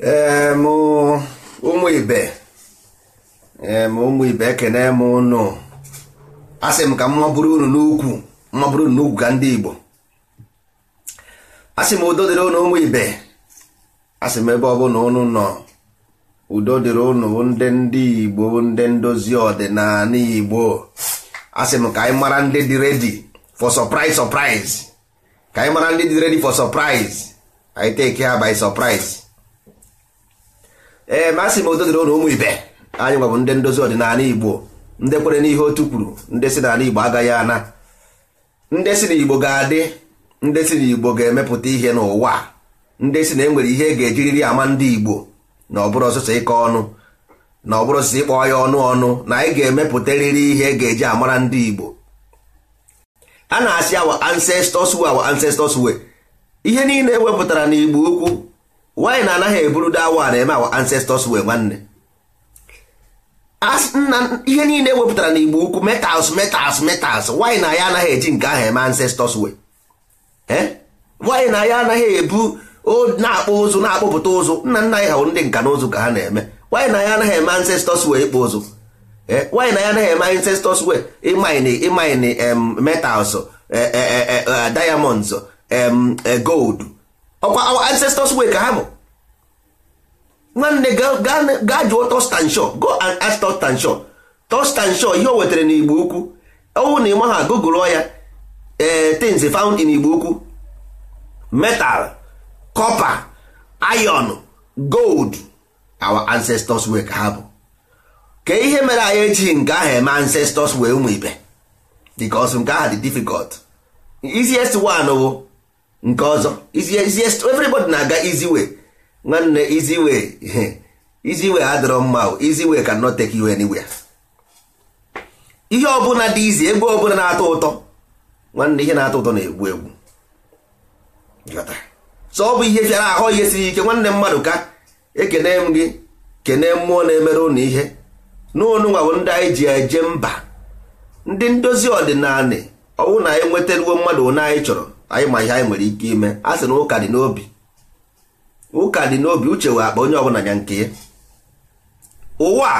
ụmụ ibe ụmụ ibe ekene m ụnụ asị m ka m mabụrụ unu n'ukwu mabụrụ unu n'ukwu ka ndị Igbo asị m udo dịrị ụnụ ụmụ ibe asị m ebe ọ ọbụla ụnụ nọ udo dịrị ụnụ ndị ndị Igbo ndị ndozi ọdịnala Igbo asị m ka anyị mara ndị dị redi for surprise surprise ka anyị mara ndị dị redi for surprise anyị teke ha by surprise ee eh, masị m odoziri ụlọ ụmụ ibe anyị nwabụ ndị ndozi ọdịnala igbo ndị kwere n'ihe otu kwuru ndị si n'ala igbo agaghị ana ndị si n'igbo ga-adị ndị si n'igbo ga-emepụta ihe n'ụwa ndị si na enwere ihe ga-ejiriri ama ndị igbo na ọbụrụ ọsụsọ ịkọ ọnụ na ọbụrụ ọsụsọ ịkpọ ya ọnụ ọnụ na anyị ga-emepụtarịrị ihe ga-eji amara ndị igbo a na-asị awa ancestors way our ancestors way ihe niile ewepụtara n'igbo ukwu nwaanyị na anaghị eburu dawa na-eme awa ancestors wee nwanne nna ihe niile na n'igbo ukwu metals metals metals nwaanyị na ya anaghị eji nke ahụ eme ancestors wee nwaanyị eh? na ya anaghị ebu na-akpụ ụzụ na-akpụpụta ụzụ nna nna anyị hawụrụ ndị nka na ụzụ ka ha na-eme nwaanyị na ya anaghị eme ancestors wee ịkpụ ụzụ nwaanyị eh? na ya anaghị eme ancestors wee ịmaini ịmaini metals eh, diamonds gold ọkwa our ancestors way ka ha bụ nwanne gaa jụọ Thurstan go and ask Thurstan Shaw Thurstan Shaw ihe o wetara n'Igbo Ukwu ọnwụ na ịma ha gụgụrụọ ya ee eh, things found in Igbo Ukwu metal copper iron gold our ancestors way ka ha bụ ka ihe mere anyị ejighị nke ahụ eme ancestors wee ụmụ ibe because nke aha dị difficult easiest one wụ. nke ọzọ everybody na-aga iziwe. nwanne iziwe. Iziwe adịrọ mma iziwe ka cannot take you anywhere ihe ọbụla dị izi egwu ọbụla na-atọ ụtọ nwanne ihe na-atọ ụtọ na-egbu egbu so ọ bụ ihe fịara ahụ ihe siri ike nwanne mmadụ ka ekene m gị kene mmụọ na-emere ụnụ ihe n'ụnụnwa bụ ndị anyị ji eje mba ndị ndozi ọdịnala ọwụ na anyị e mmadụ onye anyị chọrọ anyị ma ihe anyị nwere ike ime a sị na ụka dị n'obi ụka dị n'obi uche wee akpa onye ọ ọbụla ya nke ya ụwa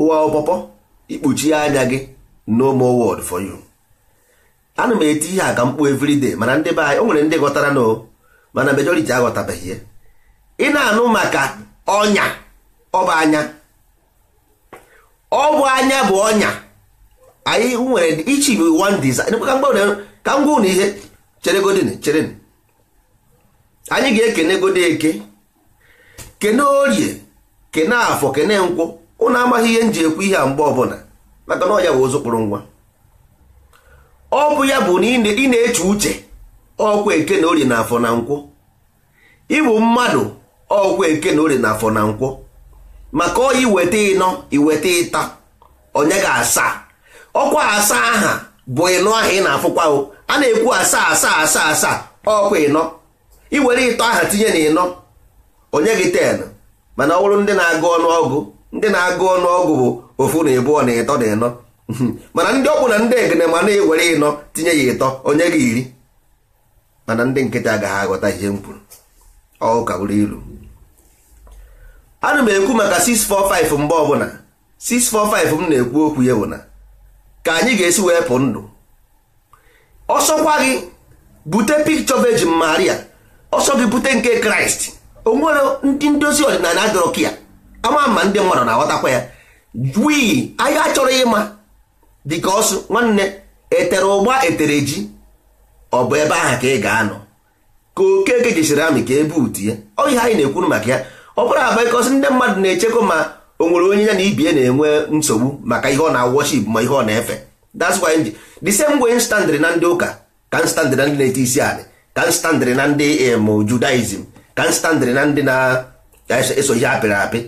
ụwa ọpọpọ ikpuchi anya gị no more word for you ana m eti ihe a ka mkpu everyday mana ndị be anyị o nwere ndị ghọtara na mana majority aghọtabeghị ya ị na-anụ maka ọnya ọ bụ anya ọ bụ anya bụ ọnya anyị nwere ichi bụ one desire ka m gwa unu cheregodin cherenụ anyị ga-ekene godo eke kene orie kene afọ kene nkwụ ụnụ amaghị ihe m ji ekwu ihe a mgbe ọbụla maka na ọ ya bụ ụzụ kpụrụ ngwa ọ bụ ya bụ na ị na-eche uche ọkwa eke na orie na afọ na nkwụ ịbụ mmadụ ọkwa eke na orie na afọ na nkwụ maka oyi iweta ịnọ iweta ịta onye ga-asa ọkwa asa aha bụ ịnụ aha ị na-afụkwa a na-ekwu asaa asaa asaa asaa ọkwa ịnọ iwere ịtọ aha tinye na ịnọ onye gị ten mana ọ bụrụ ndị na-agụ ọnụọgụ ndị na-agụ ọnụọgụ bụ ofu na ịbụọ na ịtọ na ịnọ mana ndị ọkpụ na ndị egene ma na-ewere ịnọ tinye ya ịtọ onye gị iri mana ndị nkịtị agaghị aghọta ihe m kwuru ka ilu ana m ekwu maka 645 mgbe ọbụla 645 m na-ekwu okwu ya bụ na ka anyị ga-esi wee pụ ndụ ọsọkwa gị bute picture Virgin Maria ọsọ gị bute nke kraịst onwere ndị ndozi ọdịnala adọrọ ka ya ama ma ndị mmadụ na-aghọtakwa ya wii anyị achọrọ ịma dịka ọsụ nwanne etere ụgba etere ji ọ bụ ebe ahụ ka ị ga-anọ ka okeke jesiri amị ka ebe utu ya ọ ihe anyị na-ekwuru maka ya ọ bụrụ abụ ịkọsị ndị mmadụ na-echekwa ma o nwere onye ya na ibie na-enwe nsogbu maka ihe ọ na-awọship ma ihe ọ na-efe that's why the same way standịrị na ndị ụka ka m na ndị na-eti isi anị ka m na ndị Judaism ka m na ndị na-eso ihe apịrị apị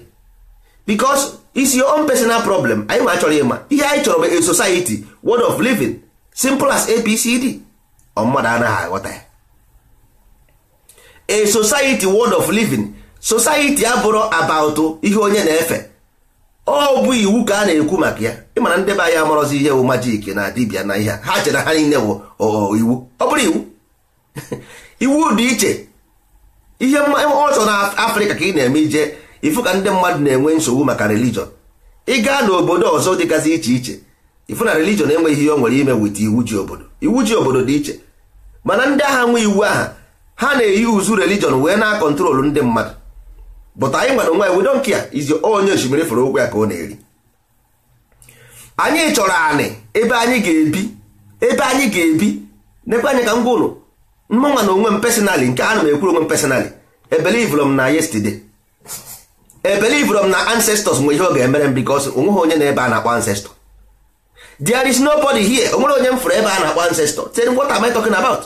because it's your own personal problem anyị ma chọrọ ịma ihe anyị chọrọ bụ a society word of living simple as apcd ọ mmadụ anaghị aghọta ya a society word of living society abụrụ about ihe onye na-efe ọ bụ iwu ka a na-ekwu maka ya ịmara ndị be anyị amarọzi ihe wụ majik na dibia na ihe ha chere ha niile wụ iwu ọ bụrụ iwu iwu dị iche ihe ọzọ na afrịka ka ị na-eme ije ifu ka ndị mmadụ na-enwe nsogbu maka relijọn ị gaa n'obodo ọzọ dịgasị iche iche ifu na religion enweghị ihe ọ nwere ime wit iwu ji obodo iwu ji obodo dị iche mana ndị agha nwe iwu aha ha na-eyi uzu religion wee na-akọntrolu ndị mmadụ but anyị nwere onwe we don't care izi onye osimiri fere okwu ya ka ọ na-eri anyị chọrọ anị ebe anyị ga-ebi ebe anyị ga-ebi nekwe anyị ka m gwa mmanwa na onwe m personally nke a na m ekwuru onwe m personally ebelivụrụ m na yesterday ebelivụrụ m na ancestors nwe ihe ọ ga-emere m because onweghị onye na ebe a na-akpọ ancestor there is nobody here onwere onye m fụrụ ebe a na-akpọ ancestor then what am I talking about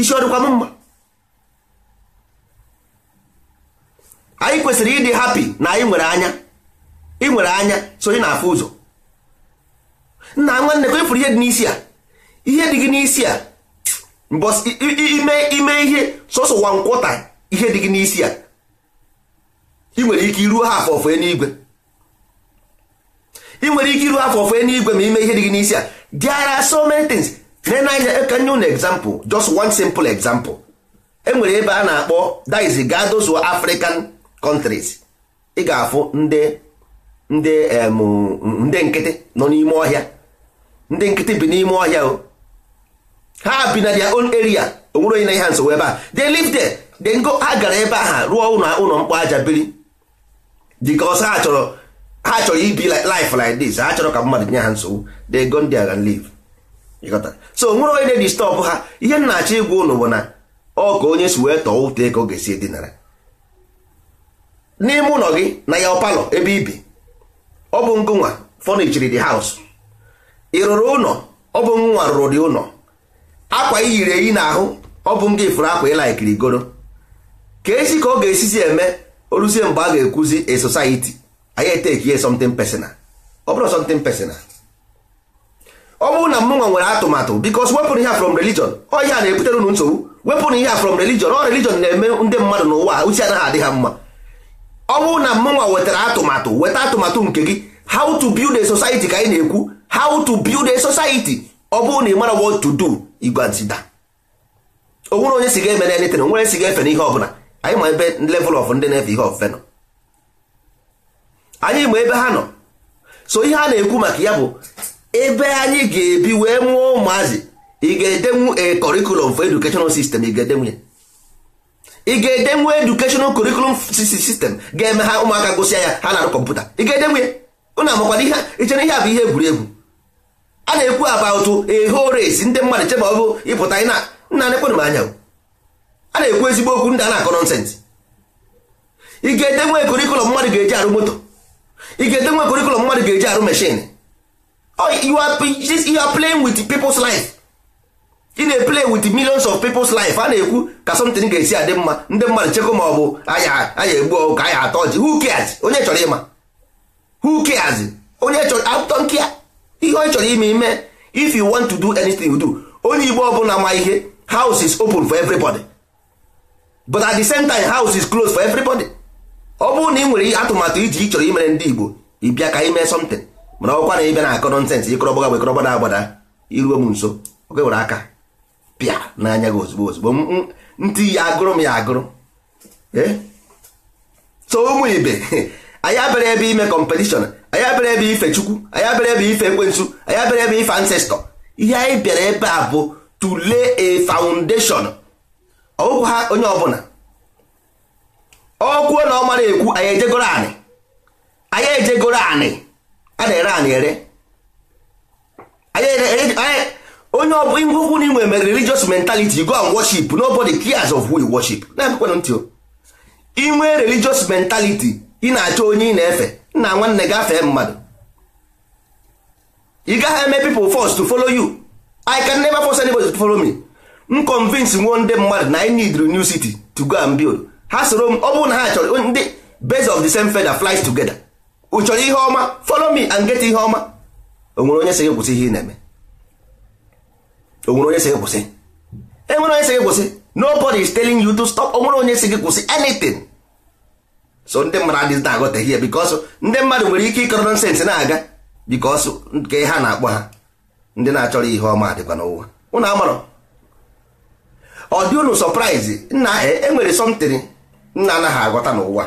isi ọ m mma anyị kwesịrị ịdị hapi na anyị nwere anya ị nwere anya so ị na-afụ ụzọ nna nwanne ka ịfụrụ e ihe dị n'isi a ihe dị gị n'isi a mbọs ime ime ihe sọsọ wa nkwọta ihe dị gị n'isi a ị nwere ike iruo ha afọ ofee n'igwe ị nwere ike iruo afọ ofee n'igwe ma ime ihe dị gị n'isi a there are so many things na anya e ka nye unu example just one simple example enwere ebe a na-akpọ that is gadozo African countries ị ga-afụ ndị ndị ndị nkịtị nọ n'ime ọhịa ndị nkịtị bi n'ime ọhịa o ha bi na their own area onwere onye na ihe ha nsogbu ebe a they live there they go ha gara ebe ahụ rụọ ụlọ ụlọ mkpọ aja biri because ha chọrọ ha chọrọ ibi life like this ha chọrọ ka mmadụ nye ha nsogbu they go ndị and live so onwere onye na-edistọbụ ha ihe m na-achọ ịgwa ụnụ bụ na ọ ka onye si wee tọọ ụtọ ego ga-esi edinara n'ime ụlọ gị na ya palọ ebe ibi ọ bụ ngụnwa fọnichiri the haus ị rụrụ ụlọ ọ bụ ngụnwa rụrụ dị ụlọ akwa i yiri eyi n'ahụ ọ bụ nga ifuru akwa ịla ikiri goro ka esi ka ọ ga-esizi eme oruzie mgbe a ga-ekwuzi a society anyị eteki ye something personal ọ bụrụ something personal ọ bụrụ na mụnwa nwere atụmatụ bikos wepụrụ ihe from religion ọ ihe a na-ebutere unu nsogbu wepụrụ ihe from religion ọ religion na-eme ndị mmadụ n'ụwa uche anaghị adị ha mma ọ bụrụ na mmụnwa wetara atụmatụ weta atụmatụ nke gị how to build a society ka anyị na-ekwu how to build a society ọ bụrụ na ị mara what to do igwazida o nwere onye si ga-emere anything o nwere si ga-efe n'ihe ọbụla anyị ma ebe level of ndị na-efe ihe ofufe nọ anyị ma ebe ha nọ so ihe a na-ekwu maka ya bụ ebe anyị ga-ebi wee nwụọ ụmụazị ị ga-edenwu a curriculum for educational system ị ga-edenwu ya ị ga-ede nwe educational curriculum system ga-eme ha ụmụaka gosi ya ha na-arụ kọmputa ị ga-ede nwe ụnụ amakwana ihe ichere ihe a bụ ihe egwuregwu a na-ekwu about a whole race ndị mmadụ cheba ọ bụ ịpụta ị na nna nekwenụ m anya a na-ekwu ezigbo okwu ndị a na-akọ nọnsensị ị ga-ede nwe curriculum mmadụ ga-eji arụ moto ị ga-ede nwe curriculum mmadụ ga-eji arụ machine oh, you are playing with people's life ị na-eplay with millions of people's life a na-ekwu ka something ga-esi adị mma ndị mmadụ chekwa ma ọ bụ anya egbu ọgụ ka anya atọ ji who cares onye chọrọ ịma who cares onye chọrọ atụtọ nkịa ihe ọ chọrọ ime ime if you want to do anything you do onye igbo ọbụla ma ihe house is open for everybody but at the same time house is closed for everybody ọ bụrụ na ị nwere atụmatụ iji ị chọrọ imere ndị igbo ịbịa ka ime something mana ọkwa na ịbịa na akọ nọnsensị ịkọrọbọga bụ agbada iruo m nso oge were aka pịa n'anya gị ozugbo ozugbo ntị ya agụrụ m ya agụrụ eh? so ụmụ ibe anyị abịara ebe ime kọmpetishọn anyị abịara ebe ife chukwu anyị abịara ebe ife ekwensu anyị abịara ebe ife ancestọ ihe anyị bịara ebe a bụ to lay a foundation ọgwụkwụ ha onye ọbụla ọkwuo na ọ ekwu anyị ejegoro anị anyị ejegoro anị a na-ere anị ere onye ọ bụla ngwokwu n'ime religious mentality go and worship nobody cares of who you worship na-emekwana ntị o inwe religious mentality ị na-achọ onye ị na-efe nna nwanne gafee mmadụ ị gaghị eme people first to follow you I can never force anybody to follow me m convince nwo ndị mmadụ na I need new city to go and build ha soro m ọ bụrụ na ha chọrọ ndị base of the same feather flies together ụ chọrọ ihe ọma follow me and get ihe ọma o nwere onye sị gị kwụsị ihe ị na-eme onwere onye si gị kwụsị enwere onye si gị kwụsị nobody is telling you to stop onwere onye si gị kwụsị anything so ndị mmadụ adịghị na-aghọtaghị ya because ndị mmadụ nwere ike ịkọrọ nsens na-aga because nke ha na-akpọ ha ndị na-achọrọ ihe ọma dịkwa n'ụwa ụnụ amarọ ọ dị unu surprise nna enwere e something nna anaghị agọta n'ụwa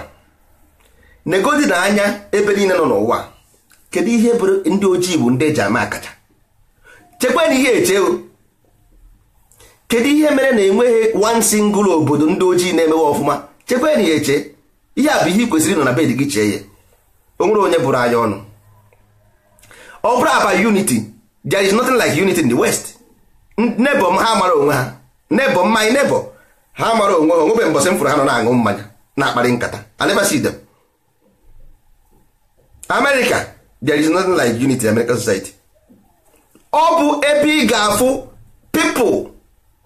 negodi na anya ebe niile nọ n'ụwa kedu ihe bụrụ ndị ojii bụ ndị eji ama akacha chekwa na ihe echeo kedu ihe mere na enweghị one single obodo ndị ojii na-emewe ọfụma chekwa enyi ya eche ihe a bụ ihe ị kwesịrị na bed gị chee ya onwere onye bụrụ anya ọnụ ọ bụrụ aba unity there is nothing like unity in the west nebo m ha mara onwe ha nebo m anyị nebo ha mara onwe ha onwebe mbọsị m fụrụ ha nọ na-aṅụ mmanya na-akparị nkata I never America there is nothing like unity in American society ọ bụ ebe ị ga-afụ people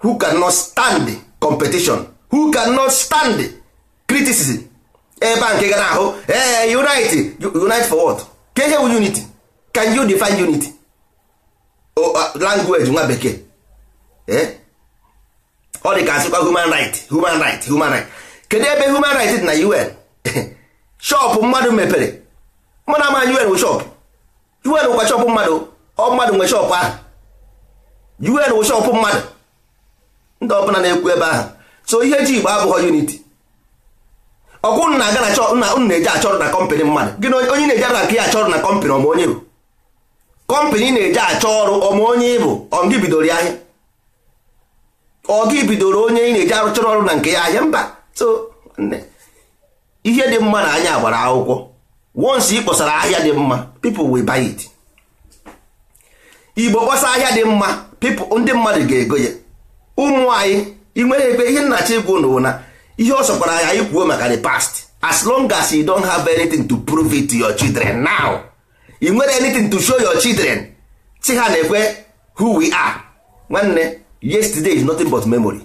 who cannot stand competition who cannot stand criticism ebe eh, a nke eh, gara ahụ ee eh, unite unite for what ka ihe bụ unity can you define unity oh, uh, language nwa bekee ọ dị ka asịkwa human right human right human right kedu ebe human right dị na un shop mmadụ mepere mụ na ama un bụ shop un kwa shop mmadụ ọ mmadụ nwe shop ahụ un bụ shop mmadụ ndị ọbụla na-ekwu ebe ahụ so ihe ji igbo abụghị unity ọkwụ nna aga na ụnụ na-eje ọrụ na kọmpanị mmadụ gị onye na-eje ara ka ya ọrụ na kọmpanị ọma onye bụ kọmpanị na-eje achọ ọrụ ọma bụ ịbụ ọ gị bidoro ya ahịa ọ gị bidoro onye ị na-eje arụchọrọ ọrụ na nke ya ahịa mba so ihe dị mma na anya gbara akwụkwọ once ị ahịa dị mma people wi buy igbo kpọsa ahịa dị mma people ndị mmadụ ga-ego ya ụmụ anyị nwere ebe ihe nnachi ịgwụ n'ụwa na ihe ọ sọkwara anyị anyị kwuo maka the past as long as you don't have anything to prove it to your children now you nwere anything to show your children si ha na-ekwe who we are nwanne yesterday is nothing but memory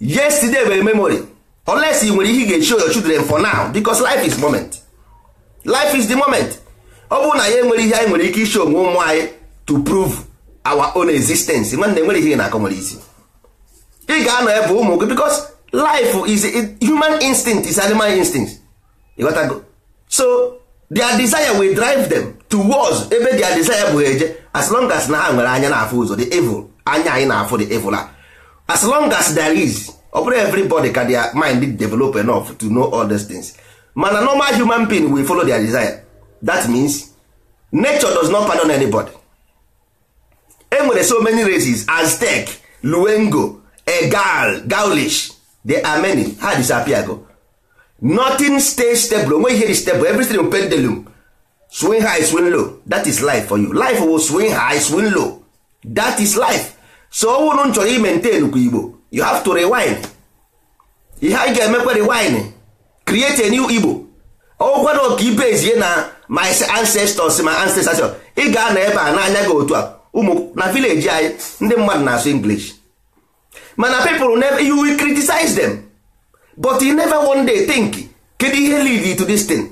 yesterday were memory unless you nwere ihe ị ga-show your children for now because life is moment life is the moment ọ bụrụ na ya enwere ihe anyị nwere ike isho onwe ụmụ anyị to prove our own existence nwanne nwere ihe na-akọ nwere isi ị ga-anọ ebe ụmụ gị because life is human instinct is animal instinct go. so their desire will drive them towards ebe their desire bụ eje as long as na ha nwere anya na-afụ ụzọ the evil anya anyị na-afụ the evil a as long as there is ọ bụrụ everybody ka their mind develop enough to know all these things mana normal human being will follow their desire that means nature does not pardon anybody. enwere so many races aztec luengo egal gaulish there are many ha disappear nothing stay stable onwe ihe stable everything will pendulum swing high swing low that is life for you life will swing high swing low that is life so ọwụrụ m chọrọ imentain kwa igbo you have to rewind ihe anyị ga-emekwa rewind create a new igbo ọgwara ọka ibe ezie na my ancestors my ancestors ị ga-anọ ebe a n'anya gị otu a ụmụ na vileji anyị ndị mmadụ na-asụ English mana people you will criticize them but you never one day think kedu ihe lead to this thing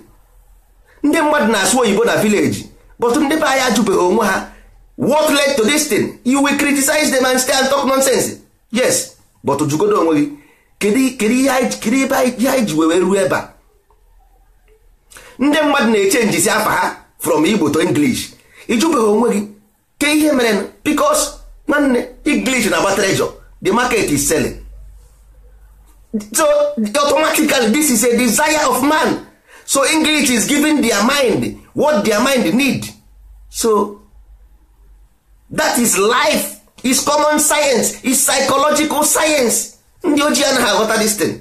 ndị mmadụ na-asụ oyibo na vileji but ndị be anyị ajụbeghị onwe ha what led to this thing you will criticize them and stay and talk nonsense yes but jugodo onwe gị kedu ihe anyị ji wee ruo ebe a ndị mmadụ na-echenjisi afa ha from Igbo to English ịjụbeghị onwe gị ke ihe mere because nwanne English na-agba treasure the market is selling so automatically this is a desire of man so English is giving their mind what their mind need so that is life is common science is psychological science ndị ojii anaghị aghọta this thing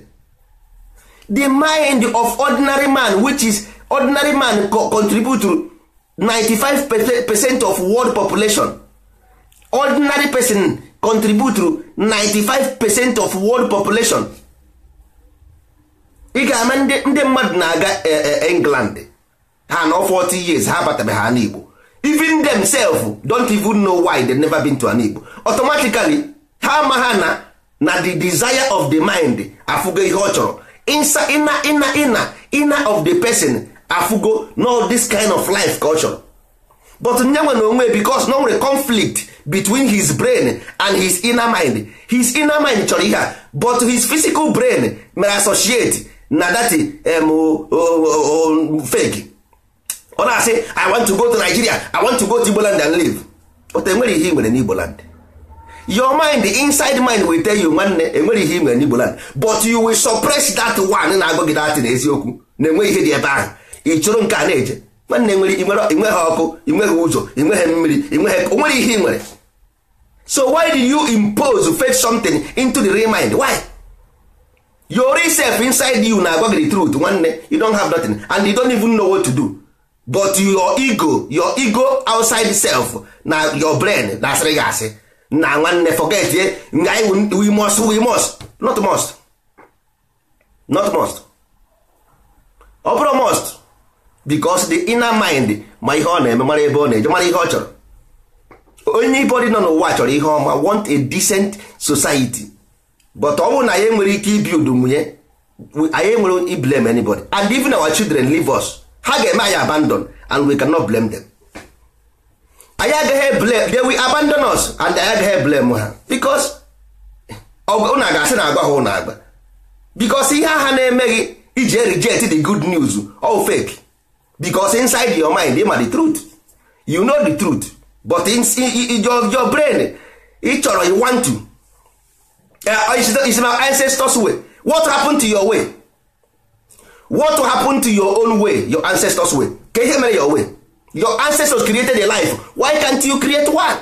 the mind of ordinary man which is ordinary man contribute 95 percent of world population ordinary person contribute to 95 percent of world population ị ga-ama ndị mmadụ na-aga e, e, england ha nọ 40 years ha abatabeghị ha n'igbo even themselves don't even know why they never been to an igbo automatically ha ama ha na na the desire of the mind afụgo ihe ọ chọrọ ina ina ina ina of the person afugo no this kind of life culture but nyenwe na onwe because na nwere conflict between his brain and his inner mind his inner mind chọrọ ihe a but his physical brain mere associate na that um, fake ọ na-asị i want to go to nigeria i want to go to igboland and live but enwere ihe i nwere n'igboland your mind inside mind will tell you nwanne enwere ihe i nwere n'igboland but you will suppress that one na-agụ gị n'eziokwu na enweghị ihe dị ebe ahụ ị chụrụ nke a na-eje nwanne nwere i inweghị ọkụ i inweghị ụzọ i inweghị mmiri inweghị o nwere ihe ị nwere so why did you impose fake something into the real mind why your self inside you na-agwa gị truth nwanne you don't have nothing and you don't even know what to do but your ego your ego outside self na your brain na-asịrị gị asị na nwanne forget ye we must we must not must not must ọ bụrụ must because the inner mind ma ihe ọ na-eme mara ebe ọ na-eje mara ihe ọ chọrọ onye ibe nọ n'ụwa chọrọ ihe ọma want a decent society but ọ bụrụ na anyị nwere ike ibi udumnye anyị nwere iblem anybody and even our children leave us ha ga-eme anyị abandon and we cannot blame them anyị agaghị blame they will abandon us and anyị agaghị blame ha because ụnụ ga-asị na agwa ha ụnụ agba because ihe agha na-emeghị iji reject the good news all oh, fake because inside your mind are the truth you know the truth but in, in your, your brain ị chọrọ you want to uh, is, is my ancestors way what happened to your way what happened to your own way your ancestors way ka ihe mere your way your ancestors created a life why can't you create one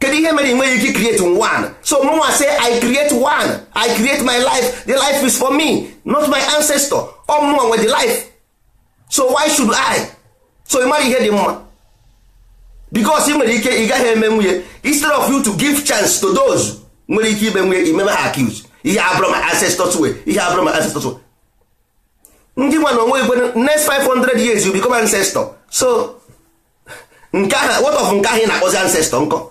kedu ihe mere you ike create one so mụnwa say i create one i create my life the life is for me not my ancestor ọ mụnwa nwe the life so why should I so ịmara ihe dị mma because ị nwere ike ị gaghị eme nwunye instead of you to give chance to those nwere ike ime nwunye imeme ha accused ihe abụrụ ma ancestors way ihe abụrụ ancestors way ndị nwa onwe igwe next 500 years you become ancestor so nke ahụ what of nke ahụ ị na-akpọzi ancestor nkọ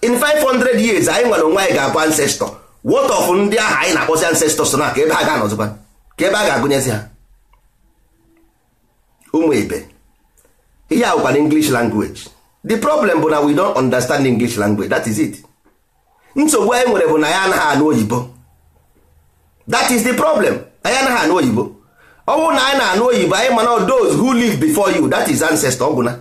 in 500 years anyị nwere onwe anyị ga-abụ ancestor what of ndị ahụ anyị na-akpọzi ancestors na ka ebe a ga-anọzikwa ka ebe a ga-agụnyezi ha ụmụ ibe ihe awụkwa na english language the problem bụ na we don't understand english language that is it nsogbu anyị nwere bụ na ya anaghị anụ oyibo that is the problem anyị anaghị anụ oyibo ọ bụrụ na anyị na-anụ oyibo anyị mana those who live before you that is ancestor ọgwụna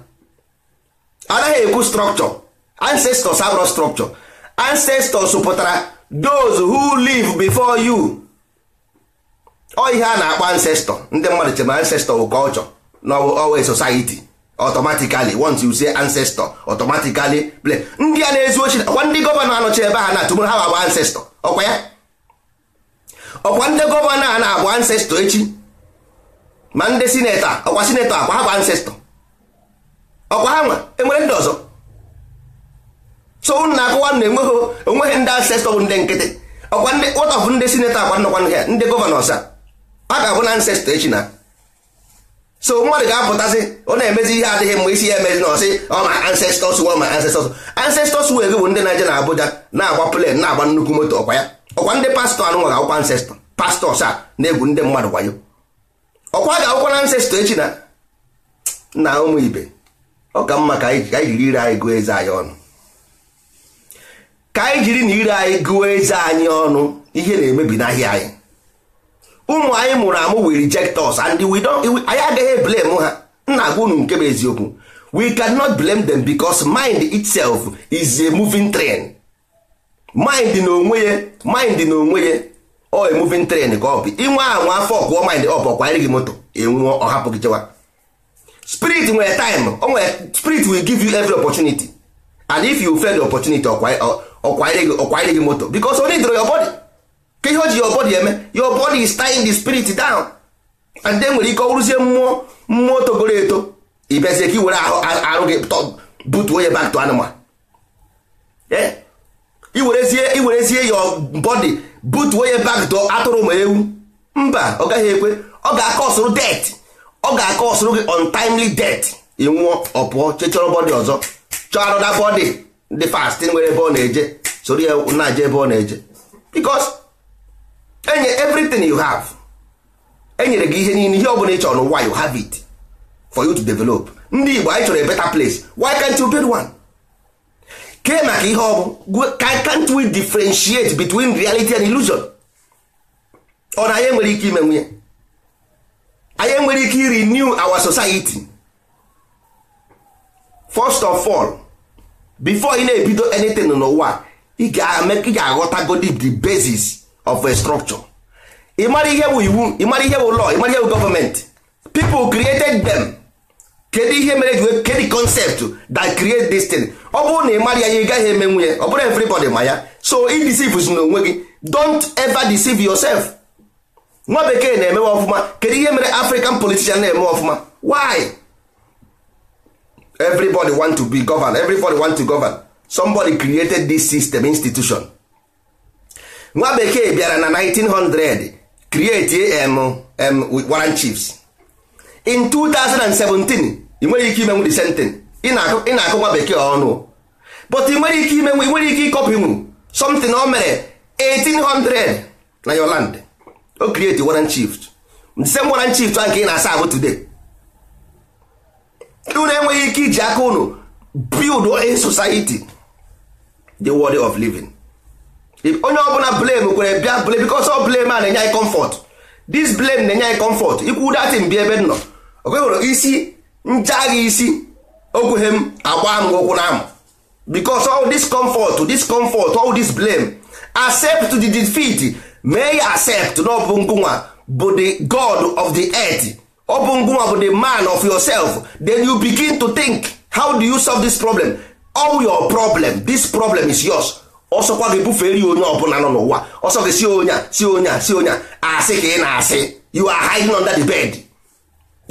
anaghị ekwu structure ancestors abụrụ structure ancestors pụtara those who live before you ọ ihe a na-akpọ ancestor ndị mmadụ chere ancestor bụ culture na always e society automatically once you say ancestor automatically play ndị a na-ezu ochi ọkwa ndị gọvanọ anọchi ebe a na-atụmụrụ ha bụ ancestor ọkwa ya ọkwa ndị gọvanọ a na agba ancestor echi ma ndị sineta ọkwa sineta akwa ha bụ ancestor ọkwa ha nwa enwere ndị ọzọ so na akụwa na enweghị onweghị ndị ancestor bụ ndị nkịtị ọkwa ndị ụtọfụ ndị sineta akwa nnọkwa ndị gọvanọ ọsa ha ga-abụ na ancestor echi na so mmadụ ga-apụtasị ọ na-emezi ihe adịghị mgbe isi ya emezi na ọsị ọ ma ancestors were ma ancestors ancestors were gị bụ ndị na-eje na abụja na-agba plen na-agba nnukwu moto ọkwa ya ọkwa ndị pastọ anụnwa ga-akwụkwa ancestọ pastọs a na-egwu ndị mmadụ wayo ọkwa ga-akwụkwa na ancestọ echi na nna ụmụ ibe ọ ka mma ka anyị jiri ire anyị gụọ eze anyị ọnụ ka anyị jiri na ire anyị gụọ eze anyị ọnụ ihe na-emebi n'ahịa anyị ụmụ anyị mụrụ amụ we reject us and we don't anyị agaghị blame ha nna agwa unu nke bụ eziokwu we cannot blame them because mind itself is a moving train mind n'onwe ya mind n'onwe ya ọ a moving train ka ọ bụ inwe anwa afọ ọkụọ mind ọ bụ ọkwanyere gị moto enwuo ọhapụ gị chewa spirit nwere time o nwere spirit will give you every opportunity and if you fail the opportunity ọkwanyere gị moto because only draw your body ka ihe o ji your body eme your body is tying the spirit down and then nwere ike ọwụrụzie mmụọ mmụọ togoro eto ịbịazie ka i ahụ arụ gị butuo ya back to animal eh? iwerezie iwerezie your body butuo ya back to atụrụ ma ewu mba ọ gaghị ekwe ọ ga akọ ọsụrụ det ọ ga akọ ọsụrụ gị untimely det ịnwụọ ọpụọ chechọrọ bọdị ọzọ chọọ arụda bọdị dị fast nwere ebe ọ na-eje soro ya na-aje ebe ọ na-eje because enye everything you have enyere gị ihe niile ihe ọ bụla ị chọrọ why you have it for you to develop ndị Igbo anyị chọrọ a better place why can't you build one? ke maka ihe ọ bụ can't we differentiate between reality and illusion? ọ na anyị enwere ike ime nwunye anyị enwere ike renew our society first of all before ị na-ebido anything n'ụwa ị ga godi the basis of a structure ịmara ihe bụ iwu ịmara ihe bụ law ịmara ihe bụ gọọmenti people created them kedu ihe mere kedu concept that create this thing ọ bụrụ na ị mara ya ya ị gaghị emenwu nwunye ọ bụrụ everybody ma ya so ị deceive si n'onwe gị don't ever deceive yourself nwa bekee na-emewe ọfụma kedu ihe mere african politician na-eme ọfụma why everybody want to be govern, everybody want to govern somebody created this system institution nwa bekee bịara na 1900 create warren chiefs in 2017 ị nwere ike imenwu the same thing ị na-akụ nwa bekee ọnụ but ị nwere ike imenwu ị nwere ike ịkọpinwu something o mere 1800 na your land o create warren chiefs the same warren chiefs ahụ nke ị na-asa ahụ today unu enweghị ike iji aka unu build a society the world of living onye ọbụla blame kwere bịa blame because ọ blame a na-enye anyị comfort this blame na-enye anyị comfort ikwu datin bi ebe nọ okwewere isi nchaghị isi okwughe m agba m ụkwụ na amụ because all this comfort this comfort all this blame accept the defeat mee ya accept na ọ bụ bụ the god of the earth ọ bụ ngụnwa bụ the man of yourself then you begin to think how do you solve this problem all your problem this problem is yours ọsọkwa gị bufere ya onye ọbụla nọ n'ụwa ọsọ gị si onye a si onye a si onye a asị ka ị na-asị you are hiding under the bed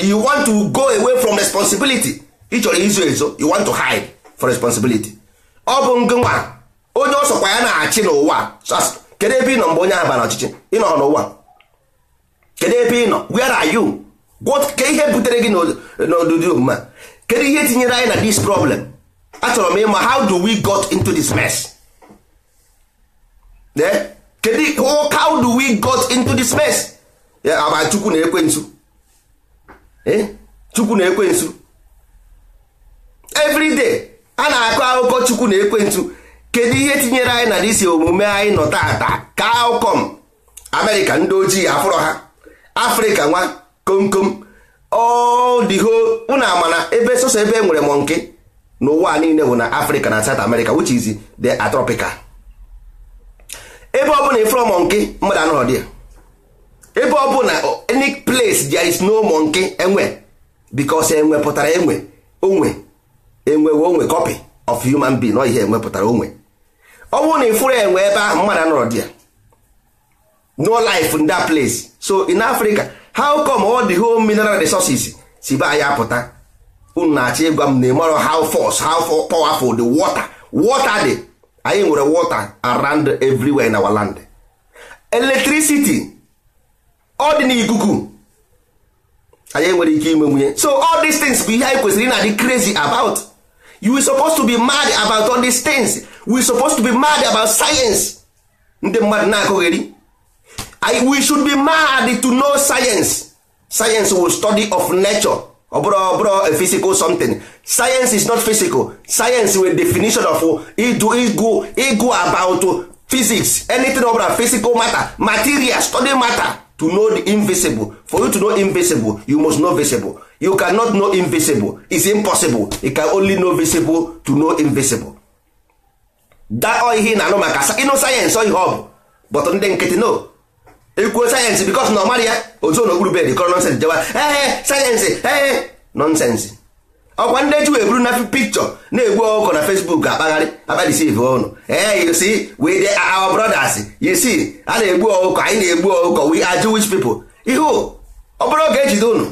you want to go away from responsibility ị chọrọ izo ezo you want to hide for responsibility ọ bụ ngịnwa onye ọsọkwa ya na-achị n'ụwa kedu ebe ị nọ mgbe onye ahụ bara ọchịchị ị nọ n'ụwa kedu ebe ị nọ where are you ke ihe butere gị n'odudi omume kedu ihe tinyere anyị na this problem achọrọ m ịma how do we got into this mess kedu eh? oh, how do we got into this mess eh, ama chukwu na ekwensu eh? chukwu na ekwensu everyday a na-akọ akụkọ chukwu na ekwensu kedu ihe tinyere anyị na disi omume anyị nọ taata ka amerịka ndị ojii afụrọ ha afrịka nwa komkom ọdịho unu amana ebe sọsọ ebe e nwere mọnke n'ụwa niile bụ na afrịka na south america which is the atropical. ebe ọ bụla ifere monkey mmadụ anọrọ dị ya ebe ọ bụla any place there is no monkey enwe because enwe pụtara enwe onwe enwewe onwe copy of human being ọ ihe enwe pụtara onwe ọ bụrụ na ifuru enwe ebe ahụ mmadụ anọrọ dị ya no life in that place so in Africa how come all the whole mineral resources si be ya pụta? unu na-achọ ịgwa m na ịmarọ how force how powerful the water water dị anyị nwere water around everywhere in our land electricity ọ dị n'ikuku anyị nwere ike ime nwunye so all these things bụ ihe anyị kwesịrị na di crazy about you were supposed to be mad about all these things we supposed to be mad about science ndị mmadụ na-akụgheri we should be mad to know science science will study of nature ọ oh, bụrụ ọ bụrụ a physical something science is not physical science with definition of idu e igu about physics anything ọ bụla physical matter material study matter to know the invisible for you to know invisible you must know visible you cannot know invisible is impossible you can only know visible to know invisible that ọ ihe na-anụ maka e sayensị ọ ihe ọ bụ but ndị nkịtị no ekwuo sayensị bikos na ọ mara ya otu n'okpuru bed kọrọ nonsensị jewa ee eh, eh, sayensị eh, ee nonsensị ọkwa ndị ji wee buru na pikchọ na-egbu ọkụkọ na fesbuk akpagharị akpadisive ọnụ ee you see we dey our brothers you see a na-egbu ọkụkọ anyị na-egbu ọkụkọ wi are Jewish people ihu ọ bụrụ oge ejide ụnụ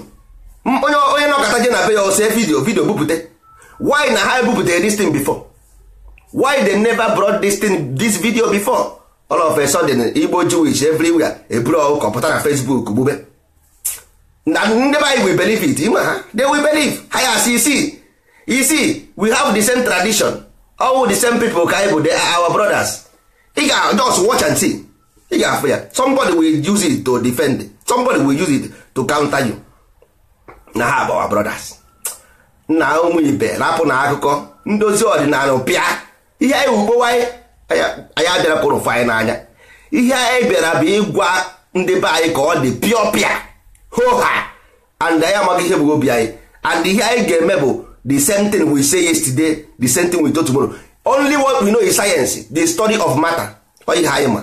onye onye nọkọta je na be ya ose vidio vidio bupụte why na ha ebupụtara this thing before why they never brought this thing this video before all of a sudden igbo jewish everywhere eburu ọkọ pụta na facebook gbube na ndị be anyị believe it ima ha they we believe ha ya see isi isi we have the same tradition all the same people ka anyị they are our brothers ị ga just watch and see ị ga-afụ ya somebody will use it to defend somebody will use it to counter you na ha bụ our brothers nna ụmụ ibe rapụ na akụkọ ndozi ọdịnala pịa ihe anyị ugbo anyị anyị abịara kụrụ fanyị n'anya ihe anyị e bịara bụ ịgwa ndị be anyị ka ọ dị pịọ pịa hoha and anyị amaghị ihe bụ obi anyị and ihe anyị ga-eme bụ the same thing we say yesterday the same thing we do tomorrow only what we know is science the study of matter oyihe anyị ma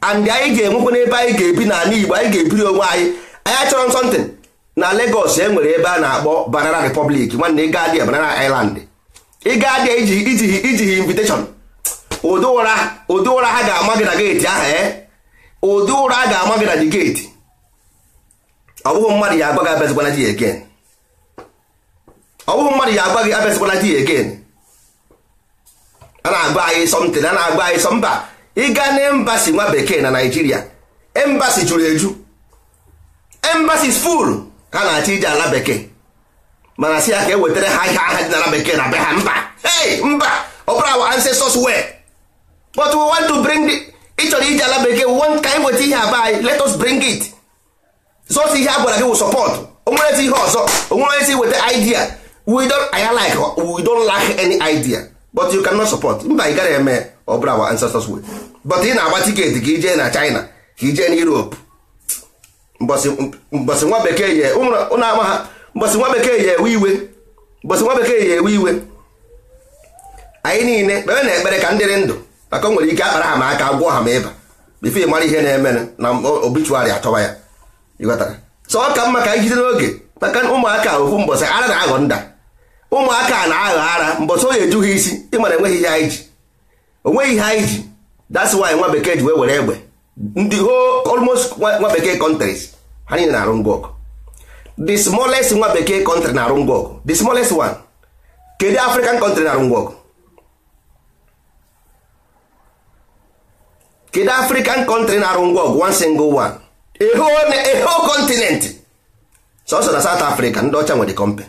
and anyị ga-enwekwa n'ebe anyị ga-ebi n'ala Igbo anyị ga-ebiri onwe anyị anyị achọrọ nsọntịn na Lagos e nwere ebe a na-akpọ Banana Republic nwanne ịga dị Banana Island ịga dị iji iji invitation ụdị ụra ụdị ụra ha ga-ama gị na geeti aha e eh? ụdị ụra a ga-ama gị na dị geeti ọ bụghị mmadụ ya agwa gị abịazikwana di egen ọ bụghị mmadụ ya agwa gị abịazikwana di egen a na-agba anyị sọmtin a na-agba anyị sọmba ịga na embasi nwa bekee na naijiria embasi juru eju embasi full ha na-achọ ije ala bekee mana si ya ka e wetara ha ihe aha dị na ala bekee na be ha mba hey mba ọ bụrụ awa ancestors wee but we want to bring ịchọrọ iji ala bekee we ka anyị weta ihe aba anyị let us bring it si ihe agwara gị wụ support onwere ihe ọzọ si weta idea we don't anya like we don't lack any idea but you cannot support mba ị gara eme ọ bụla our ancestors way but ị na-agba tiketi ka ijee na China ka ijee na Europe mbọsị nwa bekee ye ụnụ ama ha mbọsị nwa bekee ye ewe iwe mbọsị nwa bekee ye ewe iwe anyị niile kpere na ekpere ka ndị dị ndụ maka o nwere ike akpara ha ma aka gwọọ ha ma ịba bifo ịmara ihe na-eme na obichuarị atọba ya ịghọtara so ọ ka mma ka anyị jide n'oge maka ụmụaka ofu mbọsị ara na-aghọ nda ụmụaka na-aghọ ara mbọsị onye eju ha isi ịmara enweghị ihe anyị ji onweghị ihe anyị ji that's why nwa bekee ji wee were egbe ndị ho almost nwa bekee countries ha niile na-arụ ngwa smolest the smallest nwa bekee country na-arụ ngwa ọgụ the smallest one kedu African country na-arụ ọgụ kedu african country na-arụ ngwa ọgụ one single one a whole a whole continent sọnsọ na south africa ndị ọcha nwere company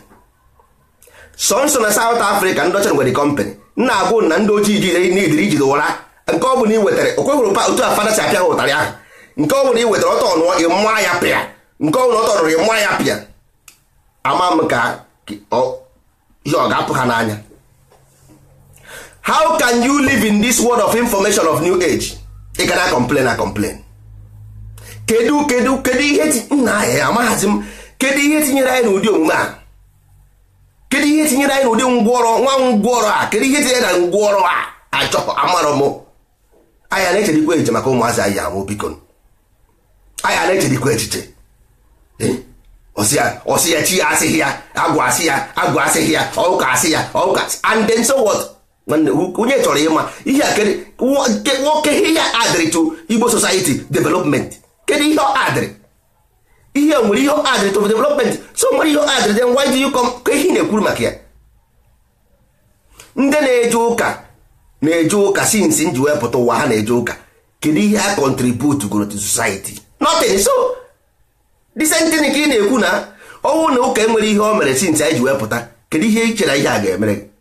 sọnsọ na south africa ndị ọcha nwere company nna agwụ na ndị ojii ji n'idiri e ijide ụra nke ọ bụla iwetara wetara okweghụrụ otu a fada si apịa ha ụtarị ahụ nke ọ bụla ị wetara ọtọ nụọ ị ya pịa nke ọ bụla ọtọ nụrụ ị ya pịa ama m ka ihe ọ ga-apụ ha n'anya how can you live in this world of information of new age ị ga na complain na complain kedu kedu kedu ihe nna ya eh, amaghazi m kedu ihe tinyere anyị n'ụdị omume a kedu ihe tinyere anyị n'ụdị ngwọrọ nwa ngwọrọ a kedu ihe tinyere na ngwọrọ a achọ amarọ m anya na-echedikwa echiche maka ụmụazị anyị amụ biko anya na-echedikwa echiche eh? ọsị ya chi ya asịghị ya agwa asị ya agwa asịghị ya ọụka asị ya ọụka and then so what onye chọrọ ịma ihe nwoke ihe adịrị igbo society development kedu ihe adịrị ihe nwere ihe adịrị to development so nwere ihe adịrị then why dị you ka ihe na-ekwuru maka ya ndị na-eje ụka na-eje ụka since nji wepụta ụwa ha na-eje ụka kedu ihe a contribute goro to society nothing so the ka ị na-ekwu na ọnwụ na ụka enwere ihe o mere since anyị ji wepụta kedu ihe ị chere ihe a ga-emere gị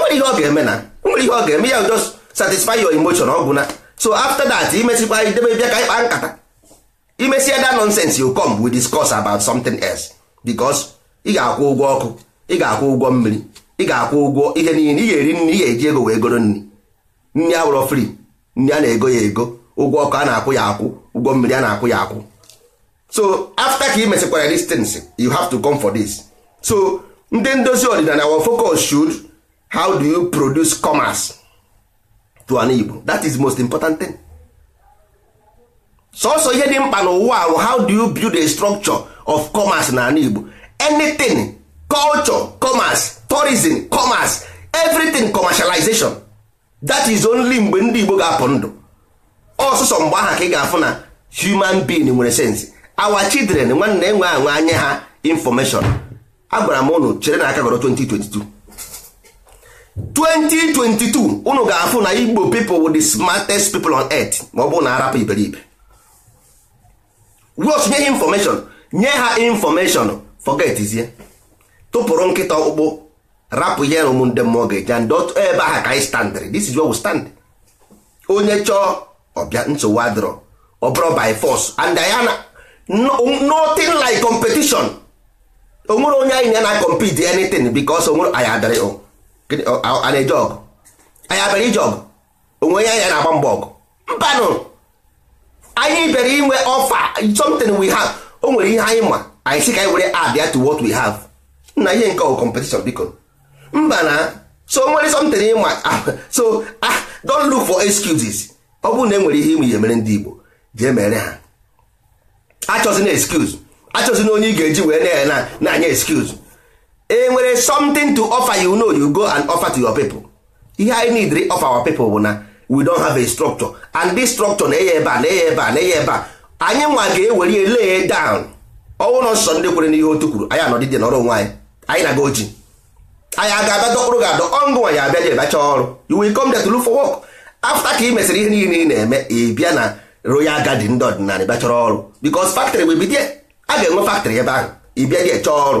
nwere ihe ọ ga-eme na enwere ihe ọ ga-eme ya just satisfy your emotion ọ na so after that imesikwa idebe bịa ka ịkpa nkata imesịa that nonsense you come we discuss about something else because ị ga-akwụ ụgwọ ọkụ ị ga-akwụ ụgwọ mmiri ị ga-akwụ ụgwọ ihe niile ị ga-eri nri ị ga-eji ego wee goro nri nri awụrọ free nri a na-ego ya ego ụgwọ ọkụ a na-akwụ ya akwụ ụgwọ mmiri a na-akwụ ya akwụ so after ka ị mesịkwara distance you have to come for this so ndị ndozi ọdịnala wa focus should how do you produce commerce to an Igbo that is most important thing sọsọ ihe dị mkpa n'ụwa ahụ how do you build a structure of commerce na an Igbo anything culture commerce tourism commerce everything commercialization that is only mgbe ndị Igbo ga-apụ ndụ ọsụsọ mgbe aha ka ị ga-afụ na human being nwere sense our children nwanne enwe anwe anya ha information agwara m ụnụ chere na aka gọrọ 2022 2022 unu ga-afụ na igbo pipo w'o di smartest pipo on earth ma ọ bụrụ na arapụ iberibe wos nye ha infọmeshọn nye ha infọmeshọn fọgetizie tụpụrụ nkịta ọkpụkpụ rapụ ihe ụmụ ndị mmụọ ga-eji and dot ebe ahụ ka anyị standịrị this is where we stand onye chọọ ọbịa nsogbu adịrọ ọ bụrụ by force and diana na nothing like competition onwere onye anyị na na compete anything because onwere anyị adịrị a na-eje ọgụ anyị abịara ije ọgụ onwe onye anyị na-agba mbọ ọgụ mbanụ anyị bịara inwe ọfa something we have o nwere ihe anyị ma anyị sị ka anyị were abịa to what we have nna ihe nke ọgụ competition biko mba na so nwere something ịma ah, so ah don't look for excuses ọ bụrụ na e nwere ihe ime ihe mere ndị Igbo jee mere ha achọzina excuse achọzina onye ị ga-eji wee na-anya excuse e nwere something to offer you know you go and offer to your people ihe anyị need offer our people bụ na we don have a structure and this structure na-enye ebe a na-enye ebe a na-enye ebe a anyị nwa ga-ewere lay down ọnwụ nọ nsọ ndị kwere n'ihe otu kwuru anyị anọdịdị n'ọrụ onwe anyị anyị na-aga oji anyị aga abịa dọkpụrụ gị adọ ọngụ nwa ya abịa je bacha ọrụ you will come there to look for work after ka ị mesịrị ihe niile ị na-eme ị na royal garden ndị ọdịnala bịa chọrọ ọrụ because factory wee bido a ga-enwe factory ebe ahụ ị bịa dị chọọ ọrụ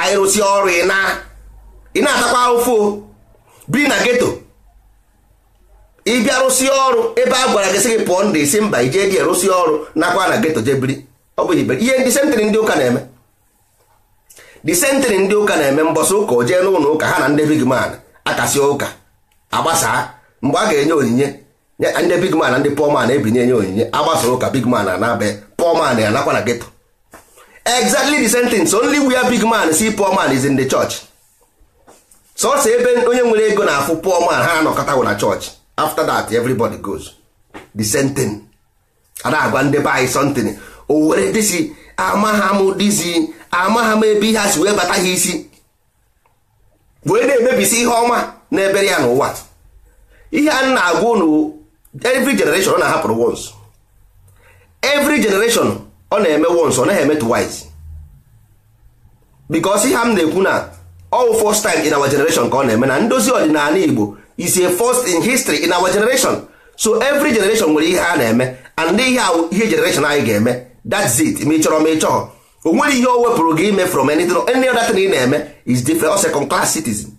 anyị ọrụ ị na-atakwa ahụfụ biri na geto ịbịa rụsi ọrụ ebe a gwara gị sị gị pụọ ndị isi mba ije dị rụsi ọrụ nakwa na geto je biri ọ bụ ibe ihe ndị ụka na-eme sentịrị ndị ụka na-eme mbọsị ụka o jee n'ụlọ ụka ha na ndị big man akasi ụka agbasaa mgbe a ga-enye onyinye ndị big na ndị poor ebinye enye onyinye agbasa ụka big man na poor man ya nakwa na ghetto exactly the only where big man see poor man is in the church sọsọ ebe onye nwere ego na-afụ poor man ha anọkọtawo na church after that everybody goes the same thing a o were m ebe ihe a si wee bata ha isi wee na-emebisi ihe ọma na-ebere ya n'ụwa ihe na-agwa every generation na-ahapụrụ once every generation ọ na-eme once ọ naghị eme twice because ihe m na-ekwu na all first time in our generation ka ọ na-eme na ndozi ọdịnala Igbo is a first in history in our generation so evry generation nwere ihe a na-eme and ihe ihe generation anyị ga-eme that's it ma ị chọrọ ma ị chọọ o ihe o wepụrụ gị ime from anything any other thing ị na-eme is different or second class citizen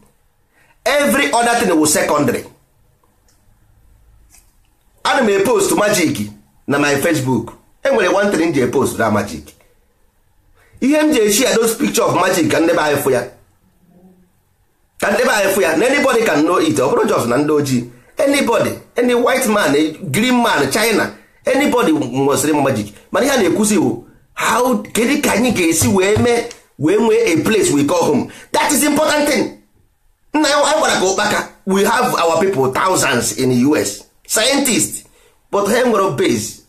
every other thing wụ secondary ana m e post magic na my facebook enwere one thing ji e post na magic ihe m ji echi a those picture of magic ka ndebe anyị fụ ya ka ndebe anyị fụ ya na anybody can know it ọ bụrụ jos na ndị ojii anybody any white man green man china anybody nwesịrị m magic mana ihe a na-ekwuzi bụ how kedu ka anyị ga-esi wee mee wee nwee a place we call home that is important thing nna ya gwara ka ụkpaka we have our people thousands in the us scientists but ha nwere base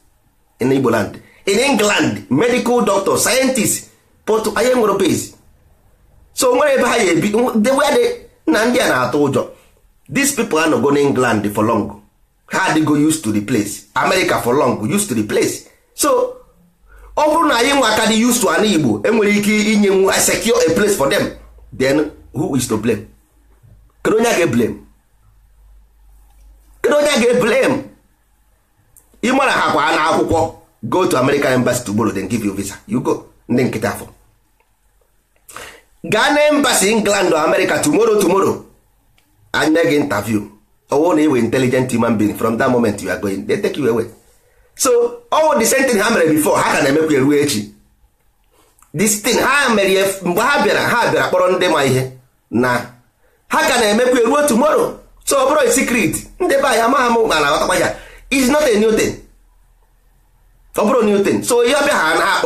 in Igbo land in England medical doctor scientist but anyị nwere base so nwere ebe ha ga-ebi na ndị a na-atụ ụjọ these people anọgo na England for long ha adịgo used to the place America for long used to the place so ọ bụrụ na anyị nwa aka dị used to ana Igbo enwere ike inye nwu e secure a place for them then who is to blame kedu onye a ga-eblame kedu onye ga-eblame ị mara ha kwa na akwụkwọ go to American embassy to borrow then give you visa you go ndị nkịta afọ gaa na embassy England or America tomorrow tomorrow anyị mee gị interview ọwụ na iwe intelligent human being from that moment you are going they take you away so ọwụ the same thing ha mere before ha ka na-emekwa eruo echi this thing ha mere mgbe ha bịara ha bịara kpọrọ ndị ma ihe na ha ka na-emekwa eruo tomorrow so ọ bụrụ secret ndị be anyị amaghị m ma na-aghọtakwa ya is not a new thing ọ bụrụ new thing so ihe ọbịa ha na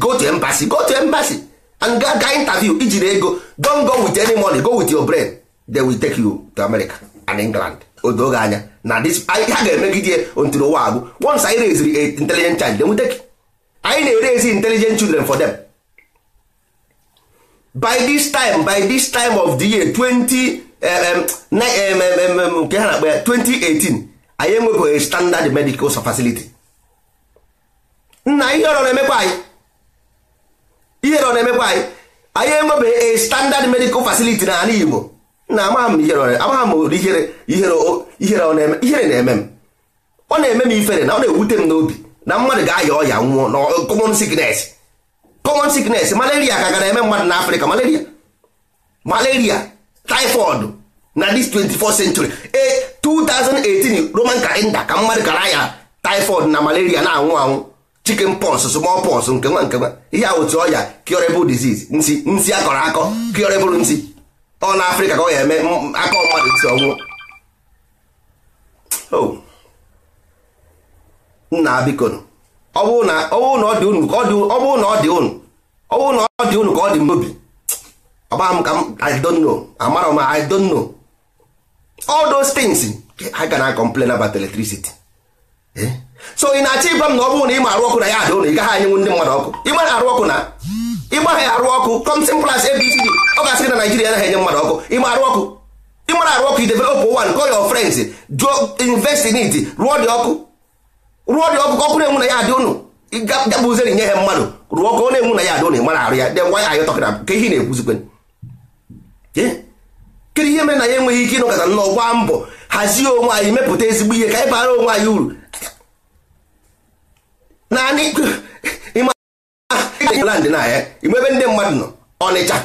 go to embassy go to embassy and ga ga interview ijiri ego don go with any money go with your brain they will take you to America and England odo oge anya na this ha ga-emegide until ụwa agwụ once anyị raise intelligent child they will take anyị na-erezi intelligent children for them by this time by this time of the year 20 nke ha na-akpa ya 2018 anyị enwebeghị standard medical facility nna ihe ọrọ na-emekwa anyị ihe ọrọ na-emekwa anyị anyị enwebeghị a standard medical facility na ala Igbo na amaghị m ihere ihere na-eme m ọ na-eme m ifere na ọ na-ewute m n'obi na mmadụ ga-aya ọya nwụọ na common sickness common sickness malaria ka ga na-eme mmadụ na Afrịka malaria malaria typhoid na this 24th century eh, 2018 roman kalenda ka mmadụ kara ya typhoid na malaria na-anwụ anwụ chicken pox small pox nke nwa nke nwa ihe a otu ọya curable disease nsi nsi akọrọ akọ curable nsị ọ na afrịka ka ọ ga-eme aka mmadụ nsị ọnwụ nna biko ọ bụrụ na ọ dị ụnụ ka ọ dị n'obi ọgba m ka m I don't know amara m I don't know all those things ha ga na complain about electricity eh? so ị na-achọ ịgwa m na ọ bụrụ na ị ma arụ ọkụ na ya ada ụlọ ị gaghị anyenwu ndị mmadụ ọkụ ịgba na arụ ọkụ na ịgbaghị arụ ọkụ kọmtin plas abcd ọ ga-asị na naijiria anaghị enye mmadụ ọkụ ịma arụ ọkụ ịmara arụ ọkụ idevelop wan call your friends jụọ invest in it rụọ dị ọkụ rụọ dị ọkụ ka ọkụ na-enwu na ya adị ụnụ gabụzeri nye ha mmadụ rụọ ọkụ ọ na-enwu na ya adị ụnụ ịmara arụ ya then why are you talking ka ihe na-ekwuzikwe kedu ihe mere na ya enweghị ike ịnọkọta nnọọ gbaa mbọ hazie onwe anyị mepụta ezigbo ihe ka anyị bara onwe anyị uru naanị land na ya imebe ndị mmadụ nọ Ọnịcha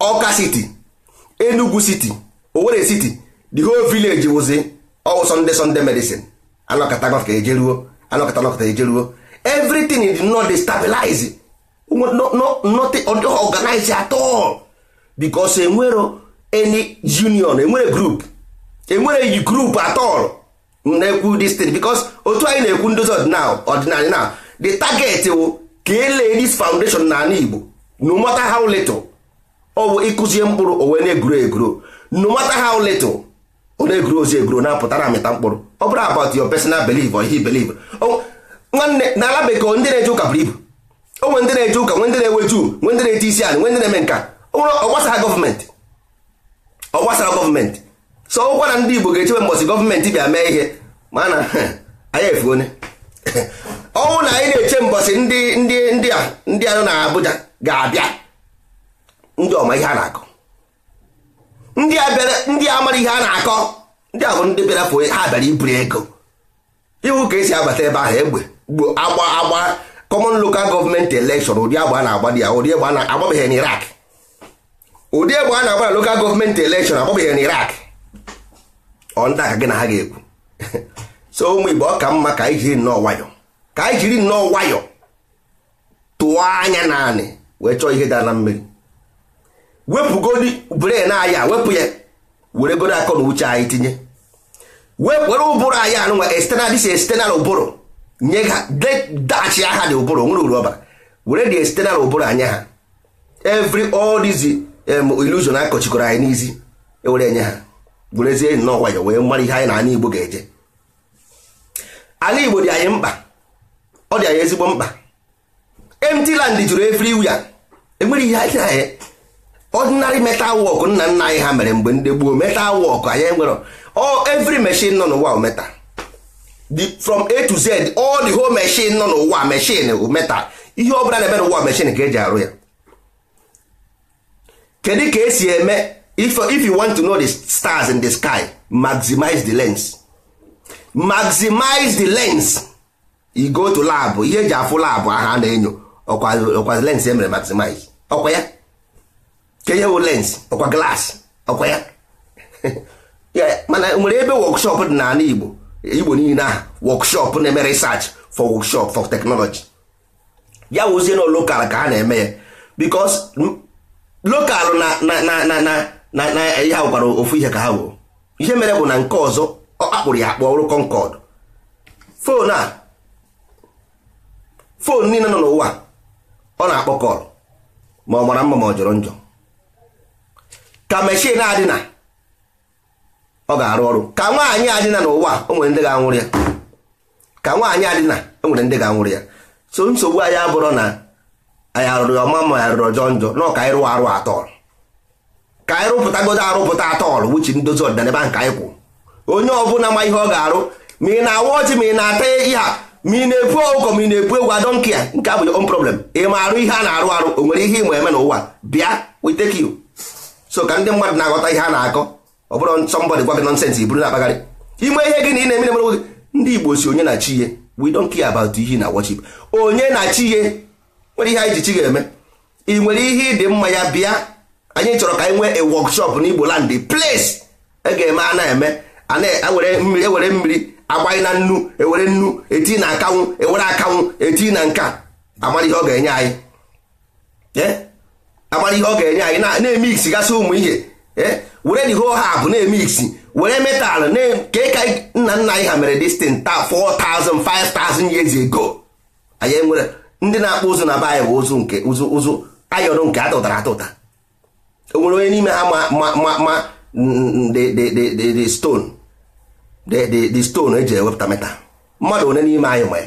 Ọka siti Enugu siti owere siti the whole village wụzi ọwụ Sunday Sunday medicine anọkọta ejeruo ejeruo everything is not destabilize not organize at all because enwero any union enwere group enwere group at all na-ekwu this because otu anyị na-ekwu ndozi ọdịnala ọdịnala na the target wụ ka elee foundation na ala Igbo no how little ọ ịkụzie mkpụrụ o na-egro egro no matter how little ọ na-egro ozi egro na-apụta amịta mkpụrụ ọ bụrụ about your personal belief or he belief ọ gbasara gọọmenti so ọkwa na ndị Igbo ga-echebe mbọsị gọọmenti bịa mee ihe ma na anyị efu onye ọnwụ na anyị na-eche mbọsị ndị ndị ndị a ndị anụ na Abuja ga-abịa ndị ọma ihe a na-akọ ndị abịara ndị amara ihe a na-akọ ndị a ndị bịara fụ ha bịara iburu ego iwu ka esi abata ebe ahụ egbe gbo agba agba kọmọn lokal gọọmenti elekshọn ụdị agba na-agba dị ya ụdị egbe a na-agbabeghị n'Iraq ụdị egbe a na-agba na lokal gọọmenti elekshọn akpọbeghị na irak ọ ndị gị na ha ga-ekwu so ụmụ Igbo ọ ka mma ka anyị jiri nnọọ nwayọ ka anyị jiri nnọọ nwayọ tụọ anya naanị wee chọọ ihe dara na mmiri wepụgodi bren aya wepụ ya were godo akọ na uche anyị tinye were ụbụrụ anyị anụnwa external dis estenal ụbụrụ nye ha dachi aha dị ụbụrụ nwere uru ọbara were dị external ụbụrụ anya ha every all ilusion akọchikwara anyị n'isi ewere enye ha gwerezie enyi n'ọgwayo wee mara ihe anyị na ala igbo ga-eje ala igbo dị anyị mkpa ọ dị anyị ezigbo mkpa empty land juru wia enwere ihe anyị anyị ordinary metal work nna nna anyị ha mere mgbe ndị gboo metal work anyị nwere ọ every machine nọ n'ụwa metal from a to z all the whole machine nọ n'ụwa machine metal ihe ọ bụla na-eme n'ụwa machine ka eji arụ ya kedu ka esi eme if if you want to know the stars in the sky maximize the lens maximize the lens you go to lab ihe eji afụ lab aha na-enyo ọkwa lens e mere maximize ọkwa ya ka ihe lens ọkwa glass ọkwa ya mana e nwere ebe workshop dị n'ala Igbo Igbo niile ahụ workshop na-eme research for workshop for technology ya wụzie na lokal ka ha na-eme ya because lokalụ na ihe ha gwara ofu ihe ka ha woo ihe mere bụ na nke ọzọ ọ kpakpụrụ ya akpọ ọrụ kọnkọd fon a fon niile nọ n'ụwa ọ na-akpọ kọl ma ọ mara mma ma ọ jọrọ njọ ka meshin adịna ọ ga-arụ ọrụ ka nwaanyị adịna n'ụwa o nwere ndị ga-anwụrụ ya ka nwaanyị adịna o ndị ga-anwụrụ ya so nsogbu anyị abụrụ na anyị arụrụ ya ọma rụrụ ọjọọ njọ nọ ka anyị rụọ arụ atọl ka anyị rụpụtagodo arụpụta atọl wuchi ndozi ọdịnala ebe nke anyị kwụ onye ọbụla ma ihe ọ ga-arụ ma ị na-awa ọchị ma ị na-ata ihe a ma ị na epu ọgụkọ ma ị na-ekwu egwu adọnke ya nke abụ on problem ị ma arụ ihe a na-arụ arụ o nwere ihe ịma eme n'ụwa bịa witeki so ka ndị mmadụ na-aghọta ihe a na-akọ ọ bụrụ gwa gị na ime gị na ị na ndị Igbo si onye na chi na chi ihe nwere ihe anyị ji chi ga-eme ị nwere ihe ịdị mma ya bịa anyị chọrọ ka anyị nwee a workshop n'Igbo land place e ga-eme a na-eme ewere mmiri ewere agbanye na nnu ewere nnu eti na akanwụ ewere akanwụ eti na nka amara ihe ọ ga-enye anyị e? amara ihe ọ ga-enye anyị na-eme gasị ụmụ ihe e? were the whole hab na-eme were metal ka ka nna nna anyị ha mere destin taa 4,000 5,000 years ago anyị nwere ndị na-akpụ ụzụ na be ụzụ nke ụzụ ụzụ ayọrọ nke atụtara atụta o nwere onye n'ime ha ma ma ma mm, the stone the stone eji ewepụta meta mmadụ one n'ime anyị ma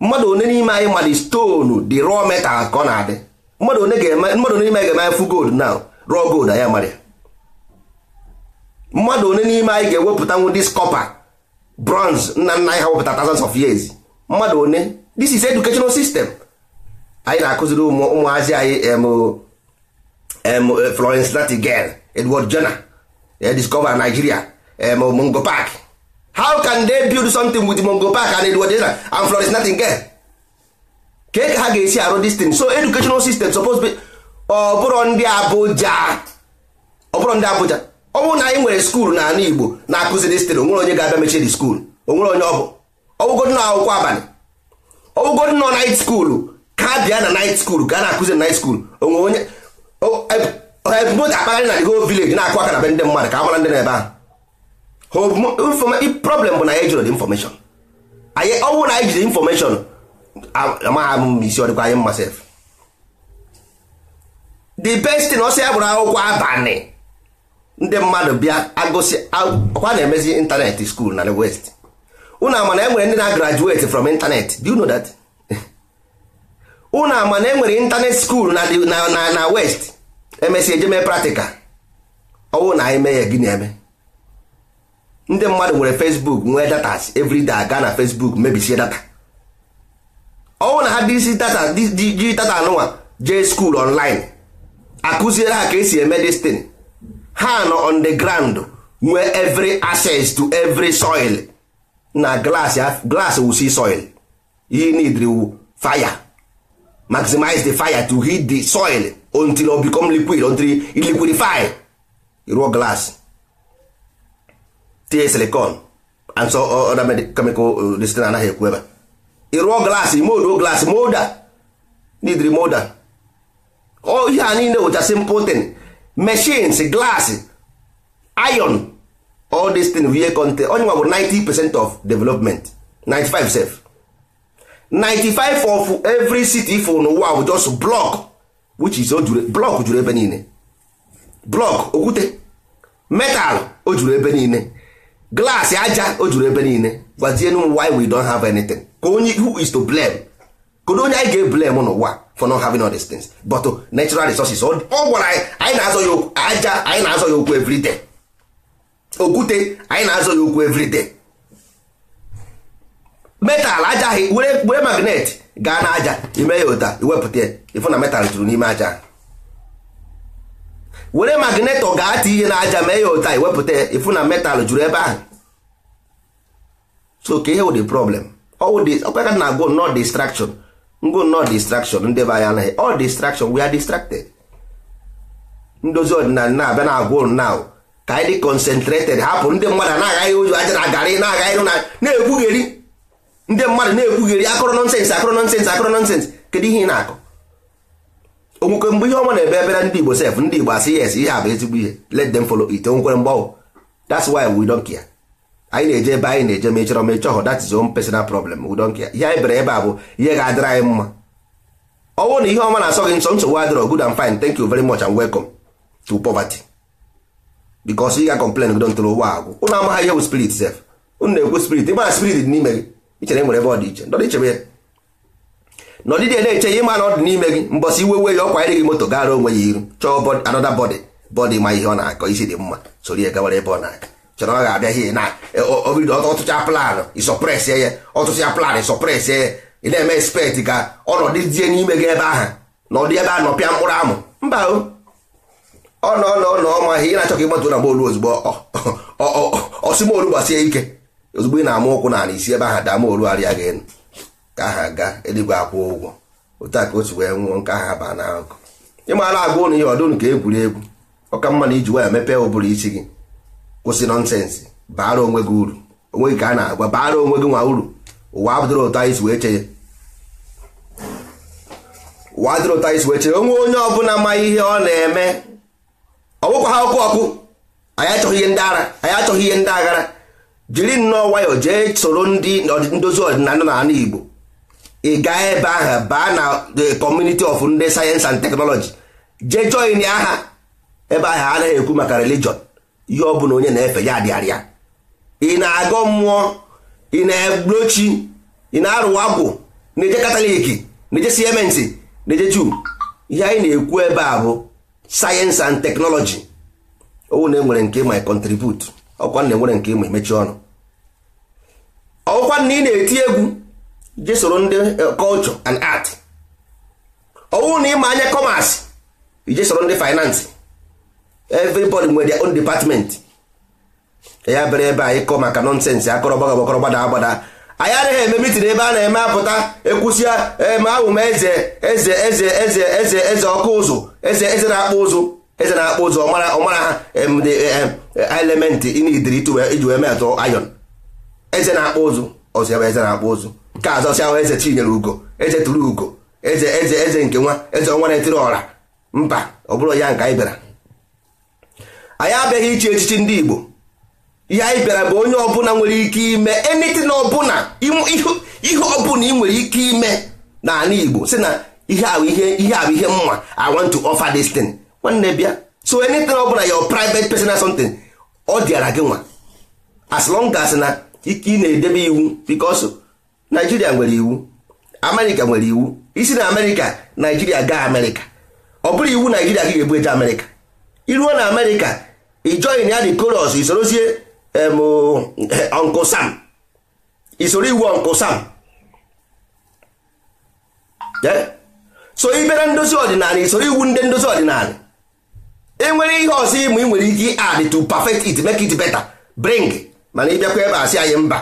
mmadụ one n'ime anyị ma the stonu dị rọ meta ka ọ na-adị mmadụ one ga-eme mmadụ one n'ime anyị ga-eme fu gold na rọ gold anyị amara ya mmadụ one n'ime anyị ga-ewepụtanwu this kọpa bronze nna nna anyị ha wepụta thousands of years mmadụ one this is educational system anyị na-akụziri ụmụazị anyị eh, Florence Nightingale Edward jona eh, discover Nigeria Mungo Park how can they build something with Mungo Park and Edward jona and Florence Nightingale ka ha ga-esi arụ this thing so educational system suppose be ọbụrụ ndị abụja ọbụrụ ndị Abuja ọ bụrụ na anyị nwere skuul n'ala Igbo na-akụzi this thing onwere onye ga-abịa mechie di skuul onwere onye ọ bụ ọgwụgod na akwụkwọ abalị ọgwụgwọ nọ night school ka bịa na night school ka a na-akụzi night school onwe onye ebumnobi e, akpagharị na the whole village na-akụ aka na be ndị mmadụ ka a mara ndị na-ebe ahụ problem bụ na anyị jụrụ information anyị ọnwụ na anyị jide information amagha m isi ọdịkwa anyị mma sef the best thing ọsọ ya bụrụ akwụkwọ abalị ndị mmadụ bịa agụsị ọkwa na-emezi ịntanetị skuul na the west unu ama na enwere ndị na graduate from internet do you know that unu ama na enwere internet school na na west emesịa eje mee practical ọwụ na anyị mee ya gị na-eme ndị mmadụ nwere facebook nwee data everyday aga na facebook mebisie data ọwụ na ha dịsi data ji data anụnwa jee school online akụziere ha ka esi eme destin ha nọ on the ground nwee every access to every soil na glass glass will see soil you need the fire maximize the fire to heat the soil until o become liquid until it liquidify raw glass tie silicon and so other chemical uh, this thing anaghị ekwu ebe ịrụọ glass mold glass molder need molder ọ ihe a niile wụcha simple thing machines glass iron all this thing we content onye nwa bụ 90 percent of development 95 sef 95 of every city for n'ụwa bụ just block which is block ojure ebe niile block okwute metal ojure ebe niile glass aja o ebe niile gwazie nu why we don't have anything ka onye who is to blame kedu onye anyị ga on n'ụwa for not having all these things but oh, natural resources ọ gwara anyị anyị na-azọ ya okwu aja anyị na-azọ ya okwu every okwute anyị na-azụ ya okwu everyday metal ajaghị were magnet gaa na aja ime ya ụta iwepụta ịfụ na metal juru n'ime aja were ọ gaa ti ihe na aja mee ya ụta iwepụta ịfụ na metal juru ebe ahụ so ka ihe wụ the problem ọkwa ka na go no distraction ngo no distraction ndị be anyị anaghị all distraction we are distracted ndozi ọdịnala na-abịa na agwa naụ. ka anyị concentrated hapụ ndị mmadụ na-agaghị ụjọ ajara agarị na-agaghị na na-ekwugheri ndị mmadụ na-ekwugheri akụrụ nonsens akụrụ nọnsensị akụrụ nọnsensị kedu ihe ị na-akọ onwekwe mgbe ihe ọma na-ebe ebere ndị Igbo sef ndị Igbo asị yes ihe a bụ ezigbo ihe let them follow it onwekwere mgbanwe that's why we don't care anyị na-eje ebe anyị na-eje mechọrọ mechọọ that is own personal problem we don't care ihe anyị bere ebe a bụ ihe ga-adịrị anyị mma ọ bụrụ na ihe ọma na-asọ gị nsọ nsogbu adịrọ good and fine thank you very much and welcome to poverty bikos ị ga-complain gidontor ụgbọ agwụ ụnụ amaghị ihe bụ spirit sef ụnụ na-ekwu spirit ị mara spirit dị n'ime gị ichere nwere ebe ọ dị iche ndọdị ichebe ya na ya na-eche ihe ma na ọ dị n'ime gị mbọsị iwe we ya ọkwa ịrị gị moto gara onwe ya iru chọọ anọda bọdị bọdị ma ihe ọ na-akọ isi dị mma sori ya gawara ebe ọ na-aga chọrọ ọ ga-abịa ihe na e, obido ọtụcha planụ ịsọpres ya ọtụcha planụ ịsọpres ya ị na-eme spet ka ọnọdụ die n'ime gị ebe ahụ na ọdị ebe a nọpịa mkpụrụ amụ mba o ọ nọ nọ nọ ọma ihe ị na-achọ ka na bọọlụ ozugbo ọsịmolu gbasie ike ozugbo ị na-ama ụkwụ na ala isi ebe ahụ daa molu arịa gị elu ka aha gaa eluigwe akwụ ụgwọ otu a ka otu wee nwụọ nke aha baa na akụ ịmara agwa ụnụ ihe ọdụnụ ka egwuregwu ọka mma na iji waya mepee ụbụrụ isi gị kwụsị nọnsensị baara onwe gị uru onwe gị ka a na-agwa baara onwe gị nwa uru ụwa adịrị ụta isi wee chee ụwa adịrị ụta isi wee chee onwe onye ọbụla ma ihe ọ na-eme ọ bụkwa ha ọkụ ọkụ anyị achọghị ihe ndị ara anyị achọghị ihe ndị aghara jiri nnọọ nwayọọ jee soro ndị ndozi ọdịnala na ala Igbo ị e gaa ebe ahụ baa na the community of ndị sayensị and teknọlọji jee join aha ebe ahụ anaghị ekwu maka relijọn ihe ọ bụla onye na-efe ya adịarịa ị e na-agọ mmụọ ị e na-egbochi ị na-arụwa agwụ na-eje kataliki na-eje siementi na-eje juu ihe anyị na-ekwu ebe a bụ sayensị and teknọlọji owu na enwere nke ma contribute ọkwa na enwere nke ma emechi ọnụ ọkwa na ị na-eti egwu iji soro ndị kọlchọ eh, and art owu na ịma anya commerce iji soro ndị finance everybody nwere their own department ya bere ebe anyị kọ maka nonsense akọrọ gbagọgbakọrọ gbada agbada anyị adịghị eme mitin ebe a na-eme apụta ekwusia eme ahụ ma eze eze eze eze eze eze ọkụ ụzụ eze eze na-akpụ ụzụ eze na-akpụ ụzụ ọmara ọmara ha e, element inidiri iji wee mee atụ ayọn eze na-akpụ ụzụ ọzọ ebe eze na-akpụ ụzụ nke azọsi ahụ eze chinyere ugo eze tụrụ ugo eze eze eze nke nwa eze ọnwa na-etiri ọra mba ọ bụrụ ya nke anyị bịara anyị abịaghị ichi echichi ndị Igbo ihe anyị bịara bụ onye ọbụla nwere ike ime enitin ọbụla ihe ọbụla ị nwere ike ime n'ala Igbo si na ihe ahụ ihe mma I want to offer this thing nwanne bịa so enitin ọbụla your private personal something ọ dịara gị nwa as long as na ike ị na-edebe iwu because naijiria nwere iwu America nwere iwu isi na America naijiria gaa America ọ bụrụ iwu naijiria gị ga-ebu eje America iruo na America ị join ya the chorus isorozie ọnkụ sam isoro iwu ọnkụ sam so ibere ndozi ọdịnala isoro iwu ndị ndozi ọdịnala enwere ihe ọzọ ịmụ ị nwere ike add to perfect it make it better bring mana ịbịakwa ebe asị anyị mba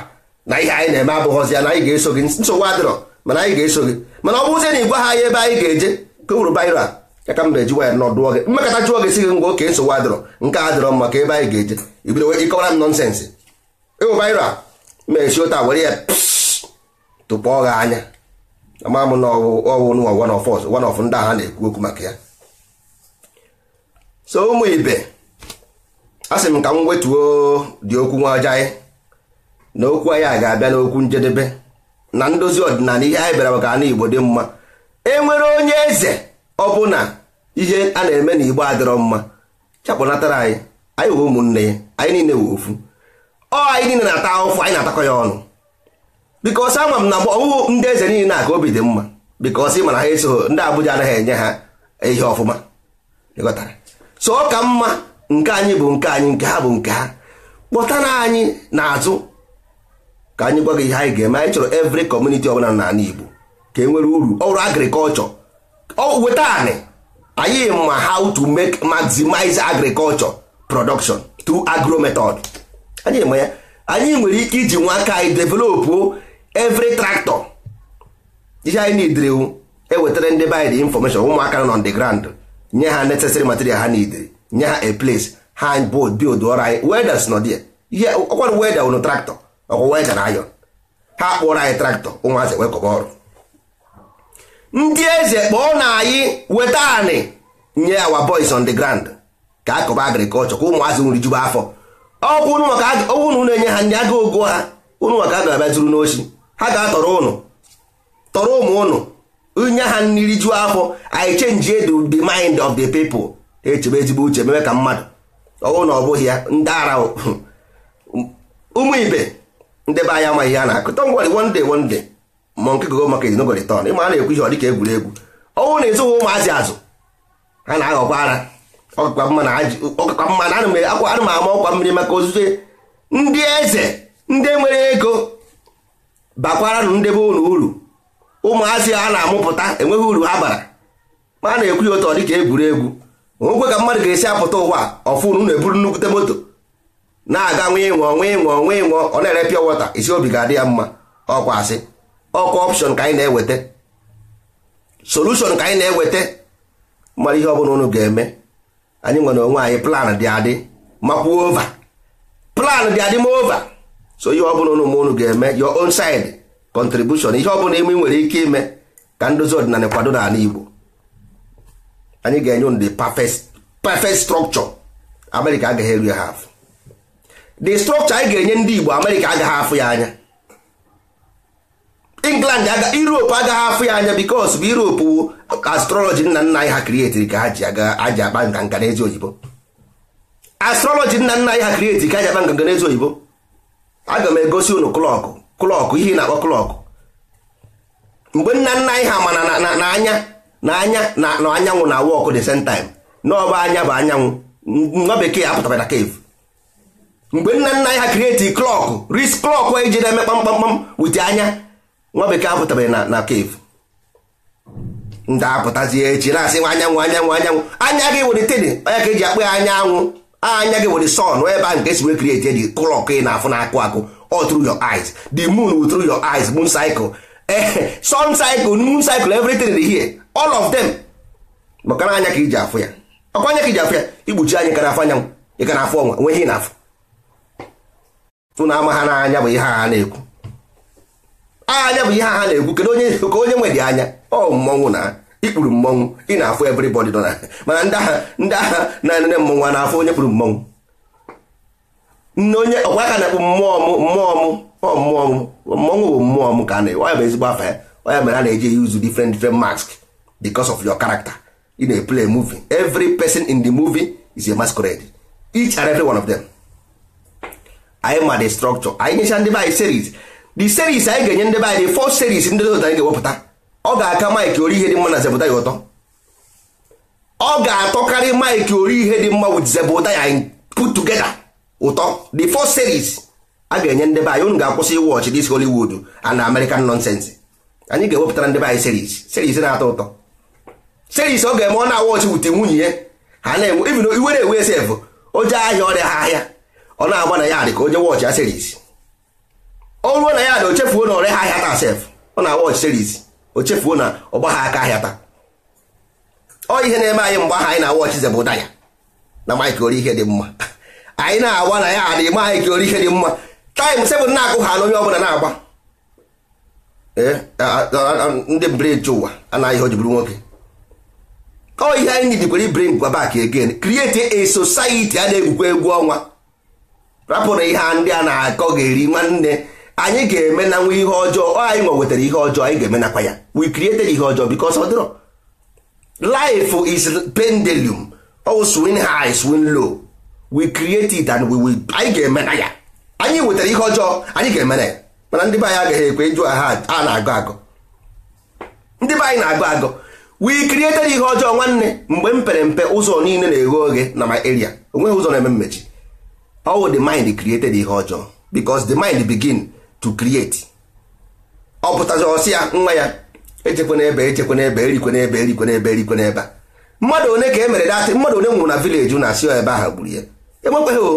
na ihe anyị na-eme abụghọzi ya na anyị ga-eso gị nsogbu adịrọ mana anyị ga-eso gị mana ọ bụrụzie na ị gwa ha anyị ebe anyị ga-eje ka uru baira ya ka m na-eji waya nọ dụọ gị mmekọta chụọ gị si gị ngwa oke nsogbu adịrọ nke a dịrọ maka ebe anyị ga-eje ibido ịkọwara m nọnsensị ịwụbaịra e mechi ụta were ya tụpụọ gị anya ama m na ọwụ nwa one of us one of ndị agha na-ekwu okwu maka ya so ụmụ ibe a sị m ka m wetuo dị okwu nwa ọjọọ anyị na okwu anyị a ga-abịa n'okwu njedebe na ndozi ọdịnala ihe anyị bịara maka ana Igbo dị mma e nwere onye eze ọbụna ihe a na-eme na igbo adịrọ mma chapụnatara anyị anyị wụ ụmụnne ya anyị niile wụ ofu ọ anyị niile na-ata ahụfụ anyị na-atakọ ya ọnụ bikos ama m na ọwụwụ ndị eze niile na-aka obi dị mma bikos ị mana ha eso ndị abụja anaghị enye ha ihe ọfụma ịghọtara so ọ ka mma nke anyị bụ nke anyị nke ha bụ nke ha kpọtara anyị n'azụ ka anyị gwa ihe anyị ga-eme anyị chọrọ kọmuniti community ọbụla n'ala Igbo ka e nwere uru ọrụ agrikọlchọ weta anị anyị ma how to make maximize agriculture production through agro method anyị ma ya anyị nwere ike iji nwa aka anyị developụ every tractor ihe anyị nidiri ewetara ndị be anyị information ụmụaka nọ on the nye ha necessary material ha nidiri nye ha a place ha bod bild ọrụ anyị welders nọ dị ihe ọkwara weda ụnụ traktọ ọkwa weda na ayọn ha kpụọrọ anyị traktọ ụmụazị wekọba ọrụ ndị eze kpọọ na anyị weta anị nye awa boys on the ground ka akọba agrikọlchọ ka ụmụazị nwere jube afọ ọkwụ unu na-enye ha ndị aga ogo ha ụnụ maka a ga-abịa zuru ha ga-atọrọ ụnụ tọrọ ụmụ ụnụ nye ha nri juo afọ anyị chenji edu the mind of the people echebe ezigbo uche mee ka mmadụ ọwụ na ọ bụghị ya ndị ara ụmụ ibe ndị anyị amaghị ihe na akụ ngwari one day ma nke gogo market no go ịma a na-ekwu ihe ọ dịka egwuregwu ọnwụ na ịzụghị ụmụazị azụ ha na-aghọkwa ara ọkakwa mma na ana m ama ọkwa mmiri maka ozuzo ndị eze ndị nwere ego bakwara nụ ndebe ụlọ uru ụmụazị a na-amụpụta enweghị uru ha bara ma a na-ekwu ya otu ọ dịka egwuregwu onwekwe ka mmadụ ga-esi apụta ụwa ọfụnụ na-eburu nnukwute moto na-aga nwe ịnwụ nwe ịṅụọ nwe ịṅụọ ọ na-ere pịa wọta isi obi ga-adị ya mma ọkwa asị ọkwa option ka anyị na-eweta solution ka anyị na-eweta mara ihe ọbụla unu ga-eme anyị nwere onwe anyị plan dị adị Makwa ova plan dị adị ma ova so ihe ọbụla unu ma unu ga-eme your own side contribution ihe ọbụla ime nwere ike ime ka ndozi ọdịnala kwado n'ala Igbo anyị ga-enye unu the perfect perfect structure America agaghị eru ya ha the structure anyị ga-enye ndị Igbo America agaghị afụ ya anya england europe agaghị afụ ya anya bikos bụ europe wu astrọlọji nna nna anyị ha krieti ka ha ji aji akpa nganga n'ezi oyibo astrọlọji nna nna anyị ha krietiri ka ha akpa nganga n'ezi oyibo aga m egosi unu klọkụ klọkụ ihe na-akpọ klọkụ mgbe nna nna anyị ha mana na anya na anya na anyanwụ na wọkụ the same time n'ọba anya bụ anyanwụ nwa bekee apụtara na cave mgbe nna nna anyị ha krieti klọkụ ris klọkụ eji na-eme kpamkpamkpam wite anya nwa bekee apụtabeghị na na cave ndị apụtazie echi na-asị nwa anyanwụ anyanwụ anyanwụ anya gị were teni anya ka eji akpụ ya anyanwụ anya gị were sun ebe a nke esiwe krieti eji klọk ị na-afụ na-akụ akụ ọ through your eyes the moon through your eyes moon cycle ee sun cycle moon cycle everything dị here all of them maka na anya ka iji afụ ya ọkwa anya ka iji afụ ya igbochi anyị ka na-afụ anyanwụ ị ka na-afụ ọnwa nwe ihe ị na-afụ tụ na ama ha n'anya bụ ihe ha na-ekwu anya bụ ihe ha na-ekwu kedu onye ka onye nwe dị anya ọ mmọnwụ na ikpuru mmọnwụ ị na-afụ everybody nọ na mana ndị agha ndị agha na nne mmọnwụ a na-afụ onye kpuru mmọnwụ nne onye ọkwa aka na-ekpu mmụọ m mmụọ m ọ mmụọ m mmọnwụ bụ mmụọ m ka a na-ewe bụ ezigbo afa ya onye mere a na-eji use different different mask because of your character ị na-eplay muvi every person in the movie is a masquerade each and every one of them anyị ma the structure anyị nyecha ndị be series the series anyị ga-enye ndị be anyị fọ series ndị dota anyị ga-ewepụta ọ ga-aka maịkị ori ihe dị mma na zebụta ya ụtọ ọ ga-atọkarị maịkị ori ihe dị mma wit zebụta ya put together ụtọ the first series a ga-enye ndị be anyị unu ga-akwụsị iwọchị dis Hollywood and American nonsense anyị ga-ewepụtara ndị anyị series series na-atọ ụtọ series ọ ga-eme ọ na-awọchị wute nwunye ya ha na-enwe iwe na-enwe esef o jee ahịa ọrịa ha ahịa ọ na-agba na ya dị ka jee wọchị ya series ọ na ya na o na ọre ha ahịa taa sef ọ na watch series o na ọgba ha aka ahịa taa ọ ihe na-eme anyị mgbe ahụ anyị na watch zebụ ya na mike ori ihe dị mma anyị na-agba na ya adịghị ma anyị ka ori ihe dị mma taịm sebụl na-agụ ha na onye ọbụla na-agba eh, ndị breji ụwa anaghị o ji bụrụ nwoke ọ ihe anyị nidikwere bring bak again create a society a na-egwukwa egwu ọnwa rapụ ihe ndị a na-akọ ga-eri nwanne anyị ga-eme na nwe ihe ọjọọ anyị nwa wetara ihe ọjọọ anyị ga-eme nakwa ya we created ihe ọjọọ because ọ dịrọ life is pendulum oh swing high swing low we create and we will anyị ga-eme na ya anyị wetara ihe ọjọọ anyị ga-eme na ya mana ndị be anyị agaghị ekwe ịjụ ha a na-agụ agụ ndị be anyị na-agụ agụ we created ihe ọjọọ nwanne mgbe mpere mpe ụzọ niile na-eghe oghe na my area onweghị ụzọ na-eme mmechi all the mind created ihe ọjọọ because the mind begin to create ọ pụtazi ọsị ya nwa ya echekwe n'ebe echekwe n'ebe erikwe n'ebe erikwe n'ebe erikwe n'ebe a mmadụ one ka e mere datị mmadụ one nwụrụ na vileji na-asị ebe ahụ gburu ya emekweghị o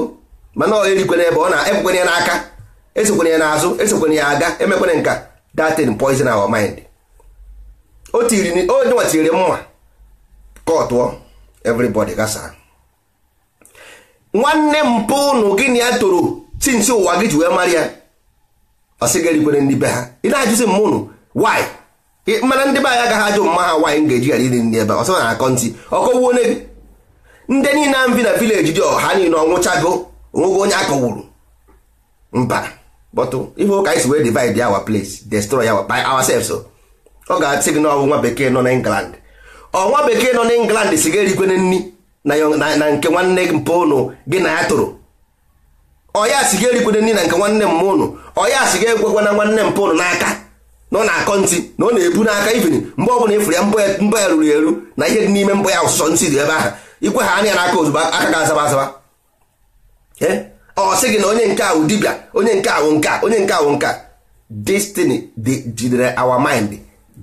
mana ọ erikwe n'ebe ọ na-ekwekwene ya n'aka esekwenye ya n'azụ esekwenye ya aga emekwene nka datin poison our mind o tiri onyenwa tiriri mma ka ọ tụọ everybody gasara. nwanne mpụ ụnụ gịnị ya toro tinsi ụwa gị ji wee mara ya ọsị ga-erikwere ndị be ha ị na-ajụzi m ụnụ mana ndị be anyị agaghị ajụ mma ha nwaanyị ga-eji ghara iri nri ebe ọsọ na akọntị ọkọwuo onye gị ndị niile a mbi na vileji dị ọha niile ọnwụchago onwego onye akọwuru mba bọtụ ihe ụka ọ ga-asị gị na ọwụ nwa bekee nọ ọnwa bekee nọ na England si ga-erikwere nri na nke nwanne gị ụnụ gị na ya tụrụ ọya si ga-erikwere nri na nke nwanne m ụnụ ọya si ga-ekwekwa na nwanne m pụnụ n'aka na ọ na akọ ntị na ọ na-ebu n'aka ifin mgbe ọbụla ịfụrụ ya mbọ ya ruru eru na ihe dị n'ime mbọ ya ọsụsọ ntị dị ebe ahụ ikwe ha anya ya n'aka ozugbo aka ga-azaba azaba ọ sị gị na onye nke ahụ dibịa onye nke ahụ nka onye nke ahụ nka destiny jidere our mind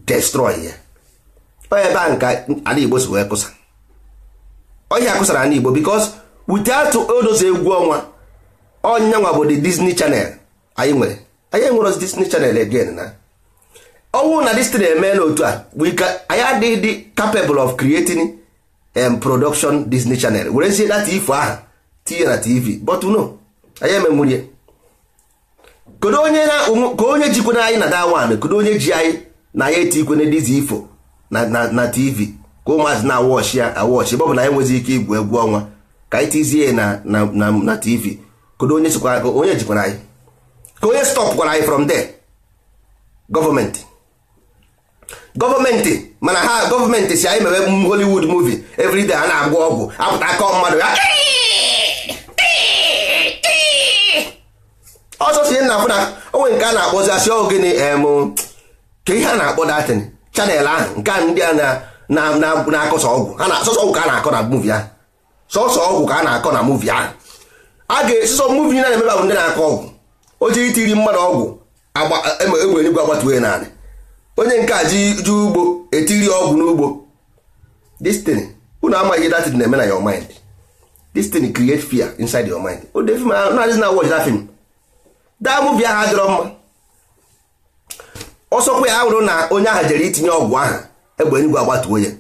destroy ya ebe a nka ala igbo si wee kụsa ọhịa kụsara ala igbo wute atụ odozi egwu ọnwa ọnyanwa bụ the Disney Channel anyị nwere anyị enwere Disney Channel again na ọnwụ na disney na-eme n'otu a anyị adịghị dị capable of creating em um, production Disney Channel were werezie na ifo aha tinye na TV but no anyị emenwurie kedu onye ka onye jikwana anyị na dawan kedu onye ji anyị na anyị eti ikwe dizi ifo na TV ka ụmụazị na awọchi ya awọchi bụ na anyị nwezi ike igwu egwu ọnwa ka anyị tizie na na TV kedu onye sikwa onye jikwara anyị ka onye stop gwara anyị from there gọọmenti gọọmenti mana ha gọọmenti si anyị mewe Hollywood movie everyday a na-agwọ ọgwụ apụta aka mmadụ ya ọsọ si nna na onwe nke a na-akpọzi asị ogene gịnị. ka ihe a na-akpọ datin chanel ahụ nke ndị a na-akọsa ọgwụ ha ka a na-akọ na muvi ahụ sọsọ ọgwụ ka a na-akọ na muvi ahụ a ga-esisọ muvi na na-emeba bụ ndị na-akọ ọgwụ o ji itiri mmadụ ọgwụ egbe e e enigwe agbatuwe naanị onye nke a ji ju ugbo etiri ọgwụ n'ugbo destiny unu amaghị that na-eme na your mind destiny create fear inside your mind o de film na adịghị na watch that film that movie ahụ adịrọ mma ọsọkwa ya ahụrụ na onye ahụ jere itinye ọgwụ ahụ egbe enigwe agbatuwe ya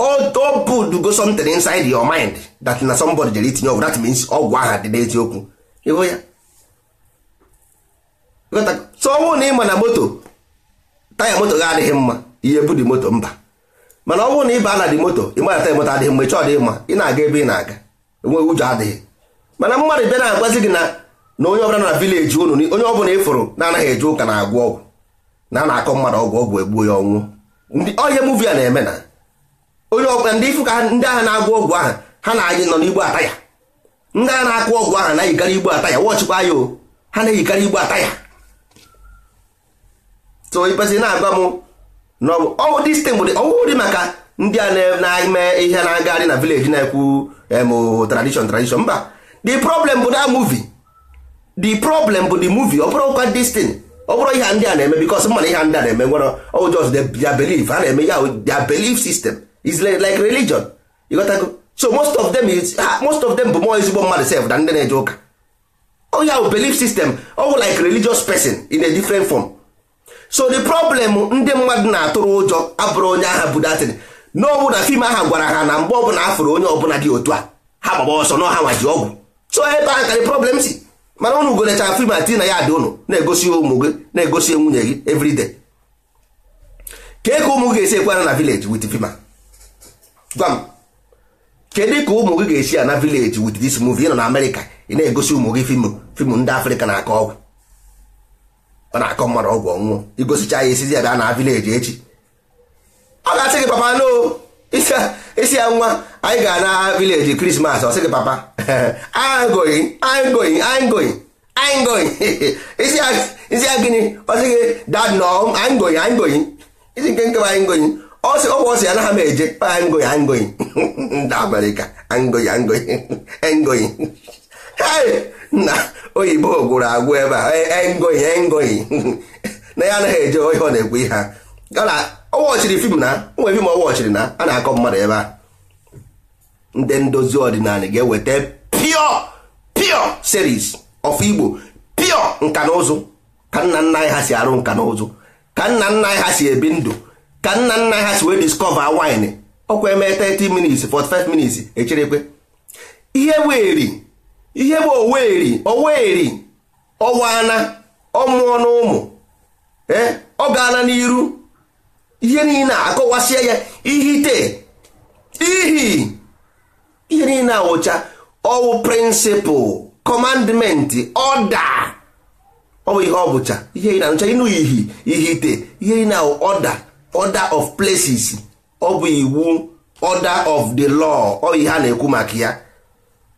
odo bud go something inside your mind that na somebody jere itinye ọgwụ that means ọgwụ aha dị n'eziokwu ịhụ ya so ọnwụ na ịma na moto taya moto gị adịghị mma ihe dị moto mba mana ọnwụ na ịba na dị moto ịma na taya moto adịghị mma ịchọ dị mma ị na-aga ebe ị na-aga enweghị ụjọ adịghị mana mmadụ bịa na-agwazi gị na na onye ọbụla na vileji unu onye ọbụla ịfụrụ na-anaghị eje ụka na-agwọ ọgwụ na a na-akọ mmadụ ọgwụ ọgwụ egbuo ya ọnwụ ndị ọhịa muvi a na-eme na onye ọbụla ndị ifu ka ndị agha na-agwọ ọgwụ ahụ ha na anyị nọ n'igbo ata ya ndị agha na-akụ ọgwụ ahụ na-eyikarị igbo ata ya wọchịkwa ya o ha na-eyikarị igbo ata ya so ibezi na-agwa m na ọwụ distin bụ ọwụ dị maka ndị a na-eme ihe na-agagharị na vileji na-ekwu em tradishon mba the problem bụ na muvi the problem bụ the muvi ọ bụrụ kwa distin ọ bụrụ ihe ndị a na-eme bikos mana ihe ndị a na-eme nwere ọjọọ ya belief ha na-eme ya their belief system is like religion you got to go so most of them is ah, most of them bụ more ezigbo mmadụ sef than ndị na-eje ụka oh yeah belief system ọ oh, bụ like religious person in a different form so the problem ndị mmadụ na-atụrụ ụjọ abụrụ onye agha budatin naowu na fim ahụ gwara ha na mgbe ọbụla afụrụ onye ọbụla dị otu a ha gbaba ọsọ na ọha nwaji ọgwụ so ebe a ka the problem si mana ụnụ golecha fim ati na ya dị ụnụ na-egosi ụmụ gị na-egosi nwunye gị everyday ka eke ụmụ ga-esi ekwara na village with fima gwa m kedu ka ụmụ gị ga-esi ana vileji wit dis movie nọ na amerịka ị na-egosi ụmụ gị fim fim ndị afrịka na-akọ ọgwụ ọ na-akọ mmadụ ọgwụ ọnwụọ igosicha ya esizi ya bịa na vileji echi ọ ga-asị gị papa no isi ya nwa anyị ga na vileji krismas ọ sị gị papa angoyi angoyi isi ya gịnị ọ sị gị dad nọ angoyi angoyi isi nke nke bụ angoyi ọsị ọgwụ ọsị anaghị m eje angoyi angoyi ndị amerịka angoyi angoyi engoyi na oyibo gwụrụ agwụ ebe a engoyi engoyi na ya anaghị eje ohe ọ na-ekwu ihe ha gara ọwọchiri fim na fim ọwọchiri na a na-akọ mmadụ ebe a ndị ndozi ọdịnala ga-eweta pio pio series of igbo pio nka na ụzụ ka nna nna anyị ha si arụ nka na ụzụ ka nna nna anyị ha si ebi ndụ ka nna nna ha si wee discover wine ọkwa eme 30 minutes 45 minutes echerekwe ihe weri ihe bụ oweri oweri ọwana ọmụọ na ụmụ ee ọ eh, gaala n'iru ihe niile akọwasịa ya ihite ihi ihe niile awụcha ọwụ prịnsịpụl kọmandmentị ọda ọ bụ ihe ọ bụcha ihe ị na-anụcha ịnụ ihi ihite ihe ị na-awụ ọda order of places ọ bụ iwu order of the law ọ ihe a na-ekwu maka ya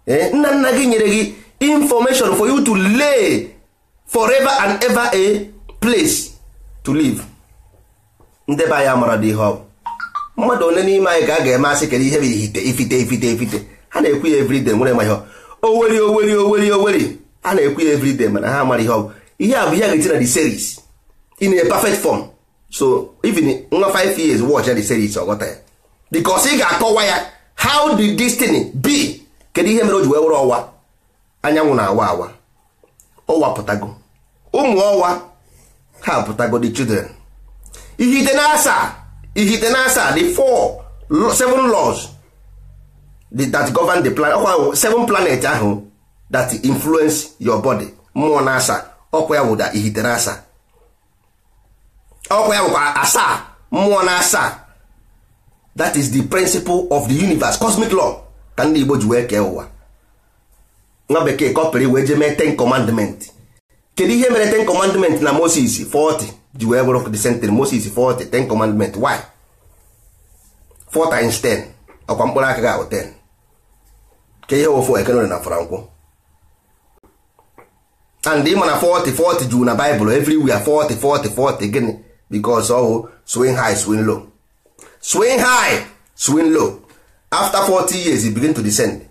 eh, nna nna gị nyere gị information for you to lay forever and ever a place to live ndebe be anyị mara dị ihe ọ mmadụ ole n'ime anyị ka a ga-eme asị kedu ihe bụ ifite ifite ifite ifite ha na-ekwu ya everyday nwere ma ihe oweri oweri oweri oweri a na-ekwu ya everyday mana ha mara ihe ọ ihe a bụ ihe a ga-eti na the series in a perfect form so even nwa 5 years watch ya the series ọ ghọta ya because ị ga-akọwa ya how the destiny be kedu ihe mere o ji wee were ọwa anyanwụ na-awa awa ọwa oh, pụtago ụmụ oh, ọwa ha pụtago the children ihite na ihite na asaa the four seven laws that govern the plan ọkwa oh, seven planet ahụ that influence your body mmụọ na asa ọkwa ya wụda ihite na asaa ọkwa ya bụkwa asaa mmụọ na asaa that is the principle of the universe cosmic law ka ndị Igbo ji wee kee ụwa nwa bekee kọpịrị wee jee mee ten commandment kedu ihe mere ten commandment na Moses 40 ji wee bụrụ the century Moses 40 ten commandment why 4 times 10 ọkwa mkpụrụ aka ga-ahụ 10 ke ihe ofu ekenere na frankwụ and ịma na 40 40 juu na Bible everywhere 40 40 40 gịnị because hụ swing high swing low swing high swing low after 40 years it begin to descend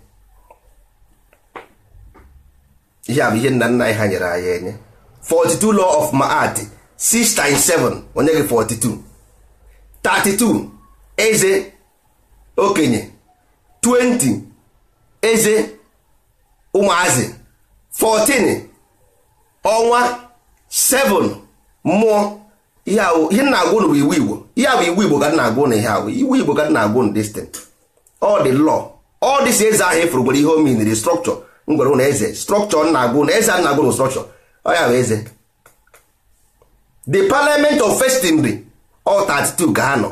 ihe bụ ihe nna nna anyị ha nyere anyị enye 42 law of Ma'at 6 times 7 onye gị 42 32 eze okenye 20 eze ụmụazị 14 ọnwa 7 mmụọ ihe ihe na-agwụ bụ iwu igbo ihe bụ iwu igbo ka m na-agwụ na ihe ahụ iwu igbo ka m na-agwụ na distant ọ dị lọ ọ dị si eze ahụ efuru ihe o strọkchọ ngwere gwere na eze strọkchọ m na-agwụ na eze a na-agwụ na strọkchọ ọ ya bụ eze the parliament of festinry ọ 32 ga anọ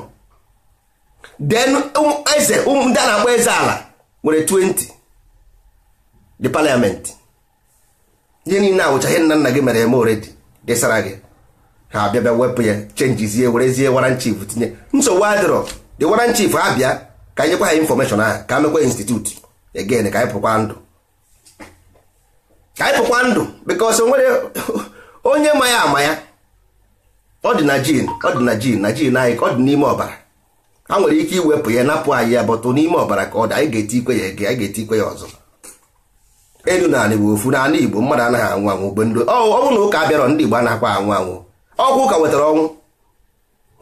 then um, eze um, ndị a na-akpọ eze ala nwere 20 the parliament ihe niile awụcha ihe nna nna gị mere eme oredi desara gị ha abịa bịa wepụ ya chenjizie werezie waran chief tinye nsogbu adịrọ dị waran abịa ka anyị ha infọmeshọn ahụ ka mekwa institut egen ka anyị pụkwa ndụ ka anyị pụkwa ndụ bikos nwere onye ma ya ama ya ọ dị na jin ọ dị na jin na jin anyị ka ọ dị n'ime ọbara ha nwere ike iwepụ ya napụ anyị ya bọtụ n'ime ọbara ka ọ dị anyị ga-eti ikwe ya ege anyị ga-eti ikwe ya ọzọ elu na anị bụ ofu na anị igbo mmadụ anaghị anwụ anwụ gbe ndị ọ bụrụ na ụka abịarọ ndị igbo akwa anwụ anwụ ọgwụ ụka wetara ọnwụ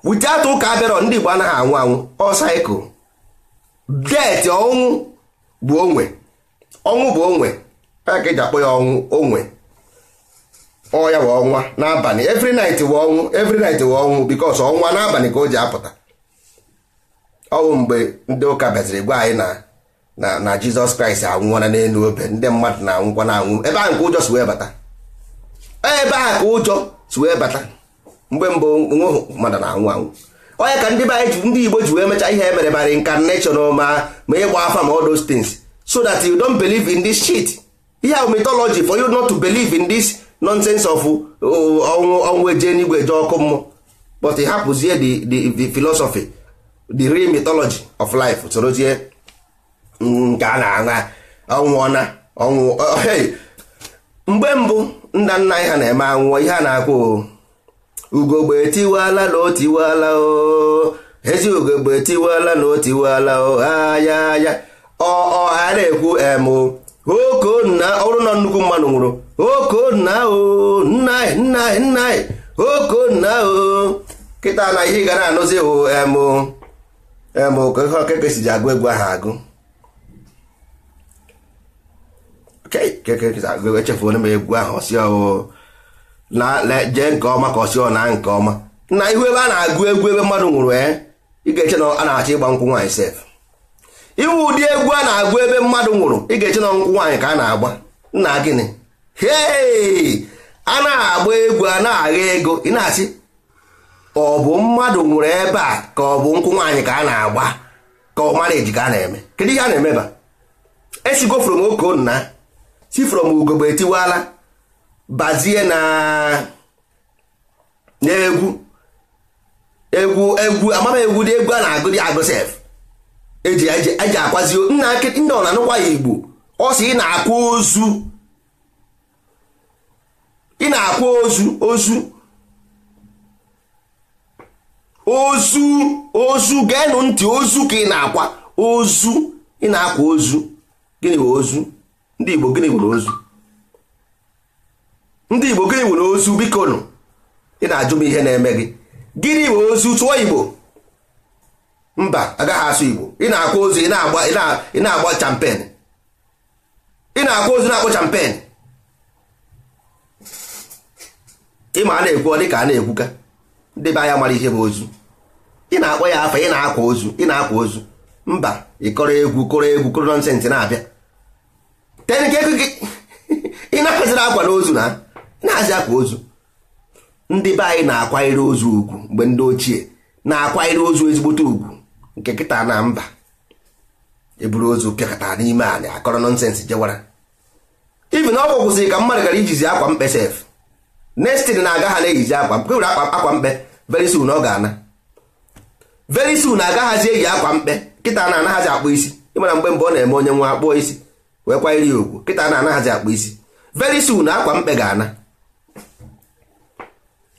wute atụ ụka abịarọ ndị Igbo anaghị anwụ anwụ ọ saịkụl det ọnwụ bụ onwe ọnwụ bụ onwe ka eji akpọ ya ọnwụ onwe ọ ya wụ ọnwa n'abalị every night wụ ọnwụ every night wụ ọnwụ because ọnwa n'abalị ka o ji apụta ọnwụ mgbe ndị ụka bịaziri gwa anyị na na na Jizọs Kraịst anwụọla n'elu obe ndị mmadụ na-anwụkwa na-anwụ ebe ahụ ka ụjọ si wee bata ebe ahụ ka ụjọ si wee bata mgbe mbụ mmadụ na-anwụ anwụ onye ka ndị be anyị ndị igbo ji wee mechaa ihe emere bara incarnation ma ma ịgba afa ma all those things so that you don't believe in this shit ihe a mythology for you not to believe in this nonsense of uh, ọnwụ ọnwụ eje n'igwe eje ọkụ mmụọ but hapụzie the the the philosophy the real mitology of life sorozie mm, nke a na-aṅa ọnwụọna ọnwụ mgbe mbụ nna nna anyị ha na-eme anwụọ ihe a na-akwụ ugogbe tiwala na o tiwala ezi ugogbe tiwala na o tiwala o aya aya ọ na ekwu emo okonna ọrụ na nnukwu mmanụ nwụrụ okonna o nna e, nna e, nna e. na o kịta na ihe ị gara anụzi hụ emo emo ka ihe ọkeke si ji agụ egwu ahụ agụ onye m egwu ahụ si ọwụ na jee nke ọma ka ọ na nke ọma na ihu ebe a na-agụ egwu ebe mmadụ nwụrụ ya eh, ị ga-eche na a na-achọ ịgba nkwụ nwaanyị sef iwu ụdị egwu a na-agụ ebe mmadụ nwụrụ ị ga-eche na nkwụ nwaanyị ka a na-agba nna gịnị hei a na-agba egwu a na-agha ego ị na achị ọ bụ mmadụ nwụrụ ebe a ka ọ bụ nkwụ nwaanyị ka a na-agba ka ọ mara eji ka a na-eme kedu ihe a na-emeba esigo from okonna nna si from ugogbe etiwala bazie na egwu egwu egwu amama dị egwu a na-agụ dị agụ eji e eji e akwazi nna ndị ọ na-anụkwa ya igbo ọ sị ị na-akwa ozu ị na-akwa ozu ozu ozu ozu geenụ ntị ozu ka ị na-akwa ozu ị na-akwa ozu gịnị bụ ozu ndị igbo gịnị bụ ozu ndị igbo gịnị nwere ozu biko nụ ị na-ajụ m ihe na-eme gị gịnị nwere ozu tụọ igbo mba agaghị asụ igbo ị na-akwa ozu ị na-agba champen ị na-akwa ozu na-akpọ champen ịma a na-ekwu dị ka a na-ekwuka ndị be anya mara ihe bụ ozu ị na-akpọ ya afa ị na-akwa ozu ị na-akwa ozu mba ị kọrọ egwu kọrọ egwu kọrọ nọnsensị na-abịa ị na-akwaziri akwa n'ozu na na-azị akwa ozu ndị be anyị na-akwanyere ozu ugwu mgbe ndị ochie na-akwanyere ozu ezigbote ugwu nke kịta na mba eburu ozu pịakọta n'ime anyị akọrọ nọnsensị jewara ibi na ọgwụ kwụsịrị ka mmadụ gara ijizi akwa mkpe sef nestin na-aga ha na-eyizi akwa mkpe were akwa mkpe very soon ọ ga-ana very soon agaghazi eyi akwa mkpe kịta na-anaghazi akpụ isi ịmara mgbe mbụ ọ na-eme onye nwa akpụọ isi wee kwanyere ya ugwu kịta na-anaghazi akpụ isi very soon akwa mkpe ga-ana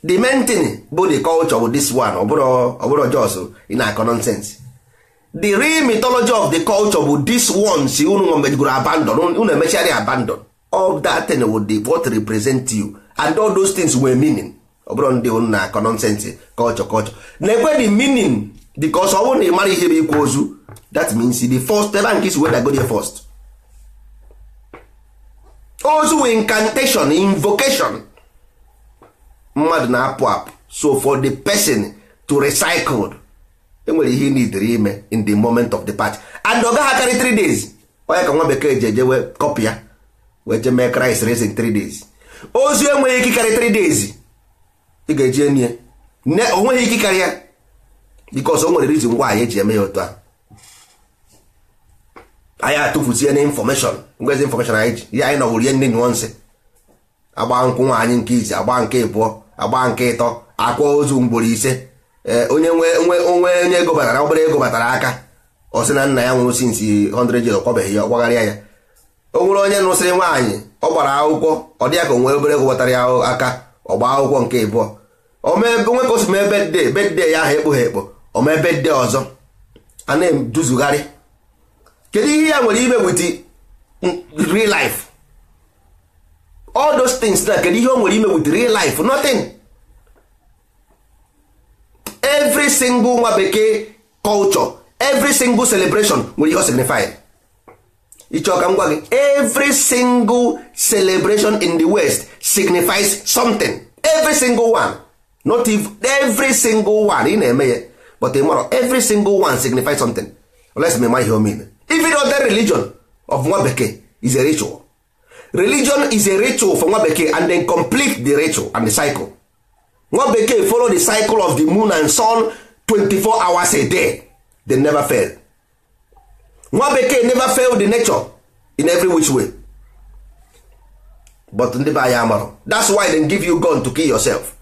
the main thing bụ the culture of this one ọbụrụ jos ị na-akọ the real mythology of the culture bụ this one si unu mejigoro abandon unu emechara abandon all that thing will be what represent you and all those things were meaning ọbụrụ ndị unu na-akọ culture culture na-ekwe the meaning because ọ bụrụ na ị mara ihe bụ ikwu ozu that means the first ebe nke isi weda go there first ozu incantation invocation mmadụ na-apụ apụ so for the person to recycle enwere ihe nidere ime in the moment of the party and ọ gaghị akarị 3 days onye ka nwa bekee ji ejewe kọpị ya wee je mee Christ raising 3 days ozu enweghị ike karị 3 days ị ga-eji enye ne onweghị ike karị ya because o nwere reason anyị eji eme ya otu a anyị atụfuzie na infọmeshọn ngwezi infọmeshọn anyị ji ya anyị nọwụrụ ihe nne nyụọ nsị agba nkwụ nwaanyị nke ise agba nke ịbụọ agba nke ịtọ akwa ozu mgboro ise e, onye nwe onwe onye ego batara obere ego batara aka ọ na nna ya nwụrụ sinsi 100 years ọkwabeghị ya ọkwagharịa ya o nwere onye nụsịrị nwaanyị ọ gbara akwụkwọ ọ dị ka onwe obere ego batara ya aka ọ gbaa akwụkwọ nke ịbụọ onwe ka bed bedde bedde ya ahụ ekpoghe ekpo ome bedde ọzọ a na-eduzugharị kedu ihe ya nwere ime wit real all those things na kedu ihe o nwere ime with real life nothing every single nwa bekee culture every single celebration nwere ihe signify ịchọ ka m gwa gị every single celebration in the west signifies something every single one not if every single one ị na-eme ya but ịmara every single one signifies something let's mema ihe o mean even other religion of nwa bekee is a ritual religion is a ritual for nwa bekee and then complete the ritual and the cycle nwa bekee follow the cycle of the moon and sun 24 hours a day they never fail nwa bekee never fail the nature in every which way but ndị be anyị amarụ that's why they give you gun to kill yourself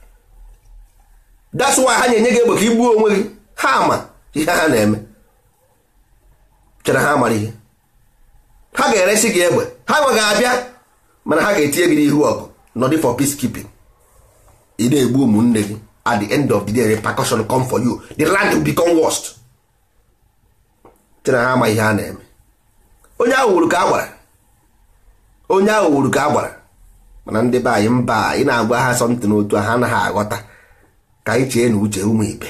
that's why ha na gị egbe igbuo onwe gị ha ama ihe ha na-eme chere ha amara ihe ha ga eresị gị egbe ha nweghị abịa mana ha ga-etinye gị n'ihu ọgụ nọdị for peacekeeping ị na-egbu ụmụnne gị at the end of the day repercussion come for you the land will become worst tena ha ama ihe a na-eme onye ahụ wuru ka a gwara onye ahụ wuru ka a mana ndị be anyị mba ị na-agwa ha something otu ha anaghị aghọta ka anyị chee na uche ụmụ ibe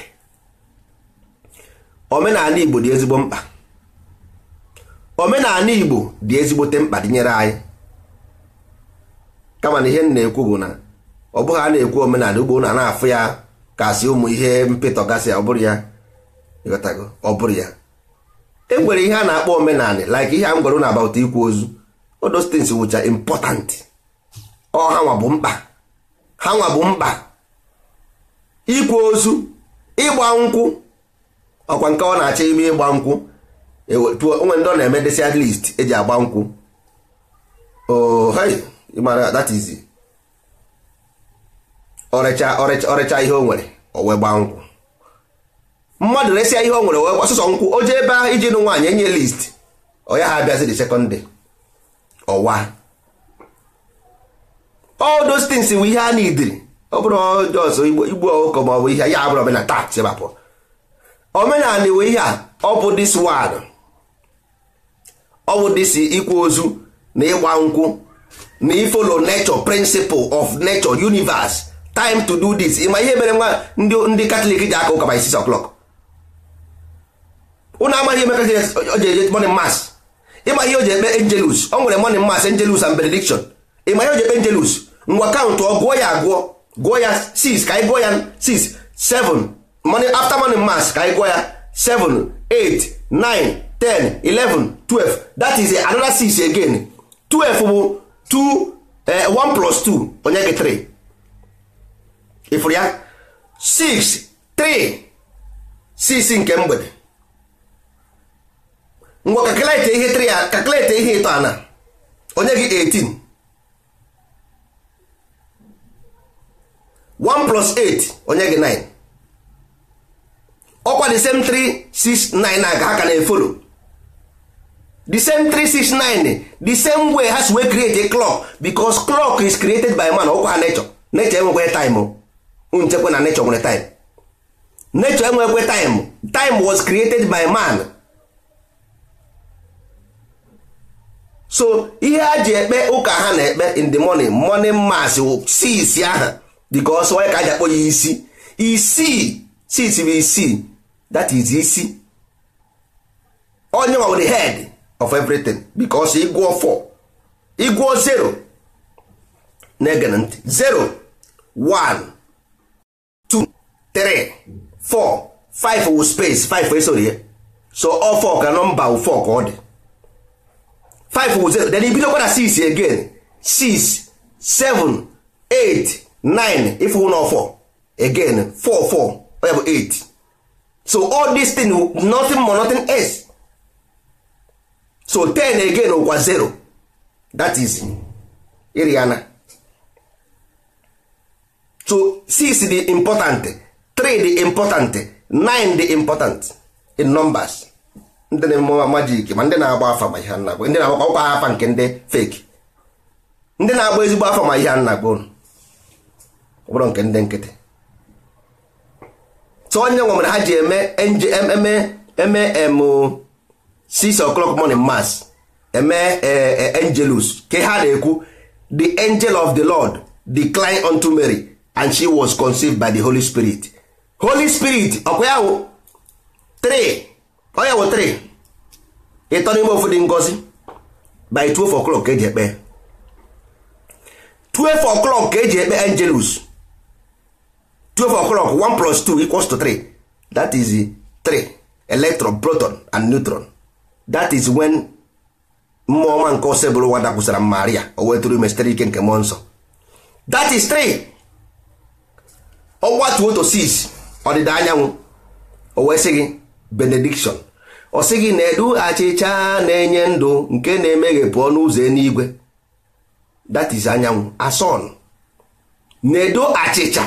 omenala Igbo dị ezigbo mkpa omenala Igbo dị ezigbote mkpa dịnyere anyị kama na ihe m na-ekwu bụ na ọ bụghị a na-ekwu omenala ugbo na na-afụ ya kasị ụmụ ihe mpịtọ gasị ọ bụrụ ya ọ bụrụ ya e nwere ihe a na-akpọ omenala like ihe a m gwara unu about ikwu ozu those things wụcha important ọ hanwa bụ mkpa hanwa bụ mkpa ikwu ozu ịgba nkwụ ọkwa nke ọ na-achọ ime ịgba nkwụ e onwe ndị ọ na-eme desi at least eji agba nkwụ oh, ịmara that is ọrịcha ọrịcha ọrịcha ihe o nwere o wee gbaa nkwụ mmadụ resịa ihe o nwere wee ọsụsọ nkwụ o jee ebe ahụ iji nụ nwaanyị enye list ọ ya ha abịazi the ọwa all those things ihe a na-idiri ọ bụrụ jọs igbu ọkụkọ ma ọ bụ ihe ya abụrụ omenala taa chebapụ omenala iwe ihe a ọ bụ dis one ọ bụ dis ikwu ozu na ịgba nkwụ na ifolo nature principle of nature universe time to do this ịma ihe mere nwa ndị katọlik ji aka ụka by 6 o'clock ụnụ amaghị emeka o ji eje morning ịma ihe o ji ekpe angelus o nwere morning mass angelus and benediction ịma ihe o ji ekpe angelus ngwa kaụntụ ọ gụọ ya agụọ gụọ ya 6 ka anyị ya 6 7 morning after morning mass ka anyị gụọ ya 7 8 9 10 11 12 that is another 6 again 12 bụ 2 1 eh, plus 2 onye gị 3 ịfụrụ ya 6 3 6 nke mgbede ngwa kakịlete ihe 3 kakịlete ihe ịtọ ana onye gị 18 1+8 plus 8 onye gị 9 ọkwa the same 3 6 9 na aga ha ka na-efolo the same 369 the same way ha si create a clock because clock is created by man ọkwa ha nature nature enwekwe time oh. nchekwa na nature nwere time nature enwekwe time time was created by man so ihe a ji ekpe ụka ha na-ekpe in the morning morning mass si isi aha because onye ka aja ji ya isi isi si bụ isi that is isi onye ọ bụ the head of everything because ịgụọ 4 ịgụọ 0 na-ege ntị 0 1 2 3 4 5 wu space 5 esoro ihe so ọ 4 ka nọmba 4 ka ọ dị 5 wu 0 then ibidokwa na 6 again 6 7 8 9 ifu na 4 again 4 4 ọ ya 8 so all this thing nothing more nothing else so 10 again ụkwa 0 that is iri so 6 dị important 3 dị important 9 dị important in numbers ndị na-eme majik ma ndị na-agba afa ma ihe nnagbo ndị na-agba ọkwa afa nke ndị fake ndị na-agba ezigbo afa ma ihe nnagbo ọbụrụ nke ndị nkịtị so onye nwere ha ji eme eme eme six o'clock morning mass eme eh, eh, angelus ka ha na-ekwu the angel of the lord decline unto mary and she was conceived by the holy spirit holy spirit ọkwa ya wụ three onye wụ three ịtọ n'ime ofu ngozi by 12 o'clock ka eji ekpe 12 o'clock ka eji ekpe angelus 12 o'clock 1 plus 2 equals to 3 that is 3 electron proton and neutron that is when mmụọ ọma nke ose bụrụ nwa dakwụsara maria o weturu ime sitere ike nke mmụọ nsọ that is 3 ọgwa 2 to 6 ọdịda anyanwụ o wee sị gị benediction ọ sị gị na-edu achịcha na-enye ndụ nke na-emeghepụ n'ụzọ ụzọ eluigwe that is anyanwụ ason na-edo achịcha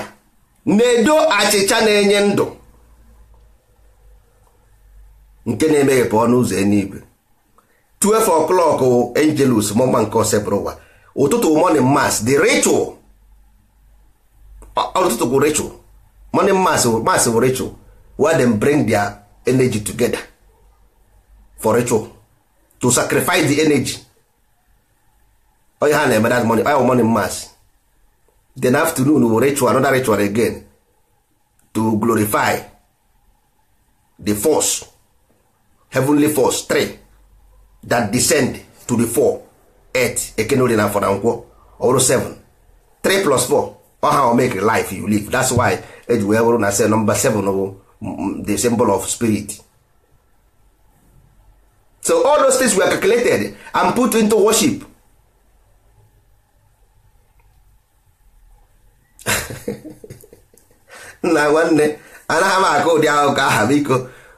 na-edo achịcha na-enye ndụ nke na-emeghepụ ọnụ ụzọ eluigwe 12 o'clock angelus mọma nke osebụrụ ụwa ụtụtụ morning mass the ritual ụtụtụ bụ ritual morning mass mass bụ ritual where them bring their energy together for ritual to sacrifice the energy onye ha na-eme that morning oya morning mass then afternoon bụ ritual another ritual again to glorify the force heavenly force three that descend to the four earth ekenori na afọ na nkwọ ọrụ 7 3 plus four ọha o make life you live that's why eji wee bụrụ na se nọmba 7 bụ the symbol of spirit so all those things were calculated and put into worship nna nwanne anaghị m aka ụdị ahụ ka aha biko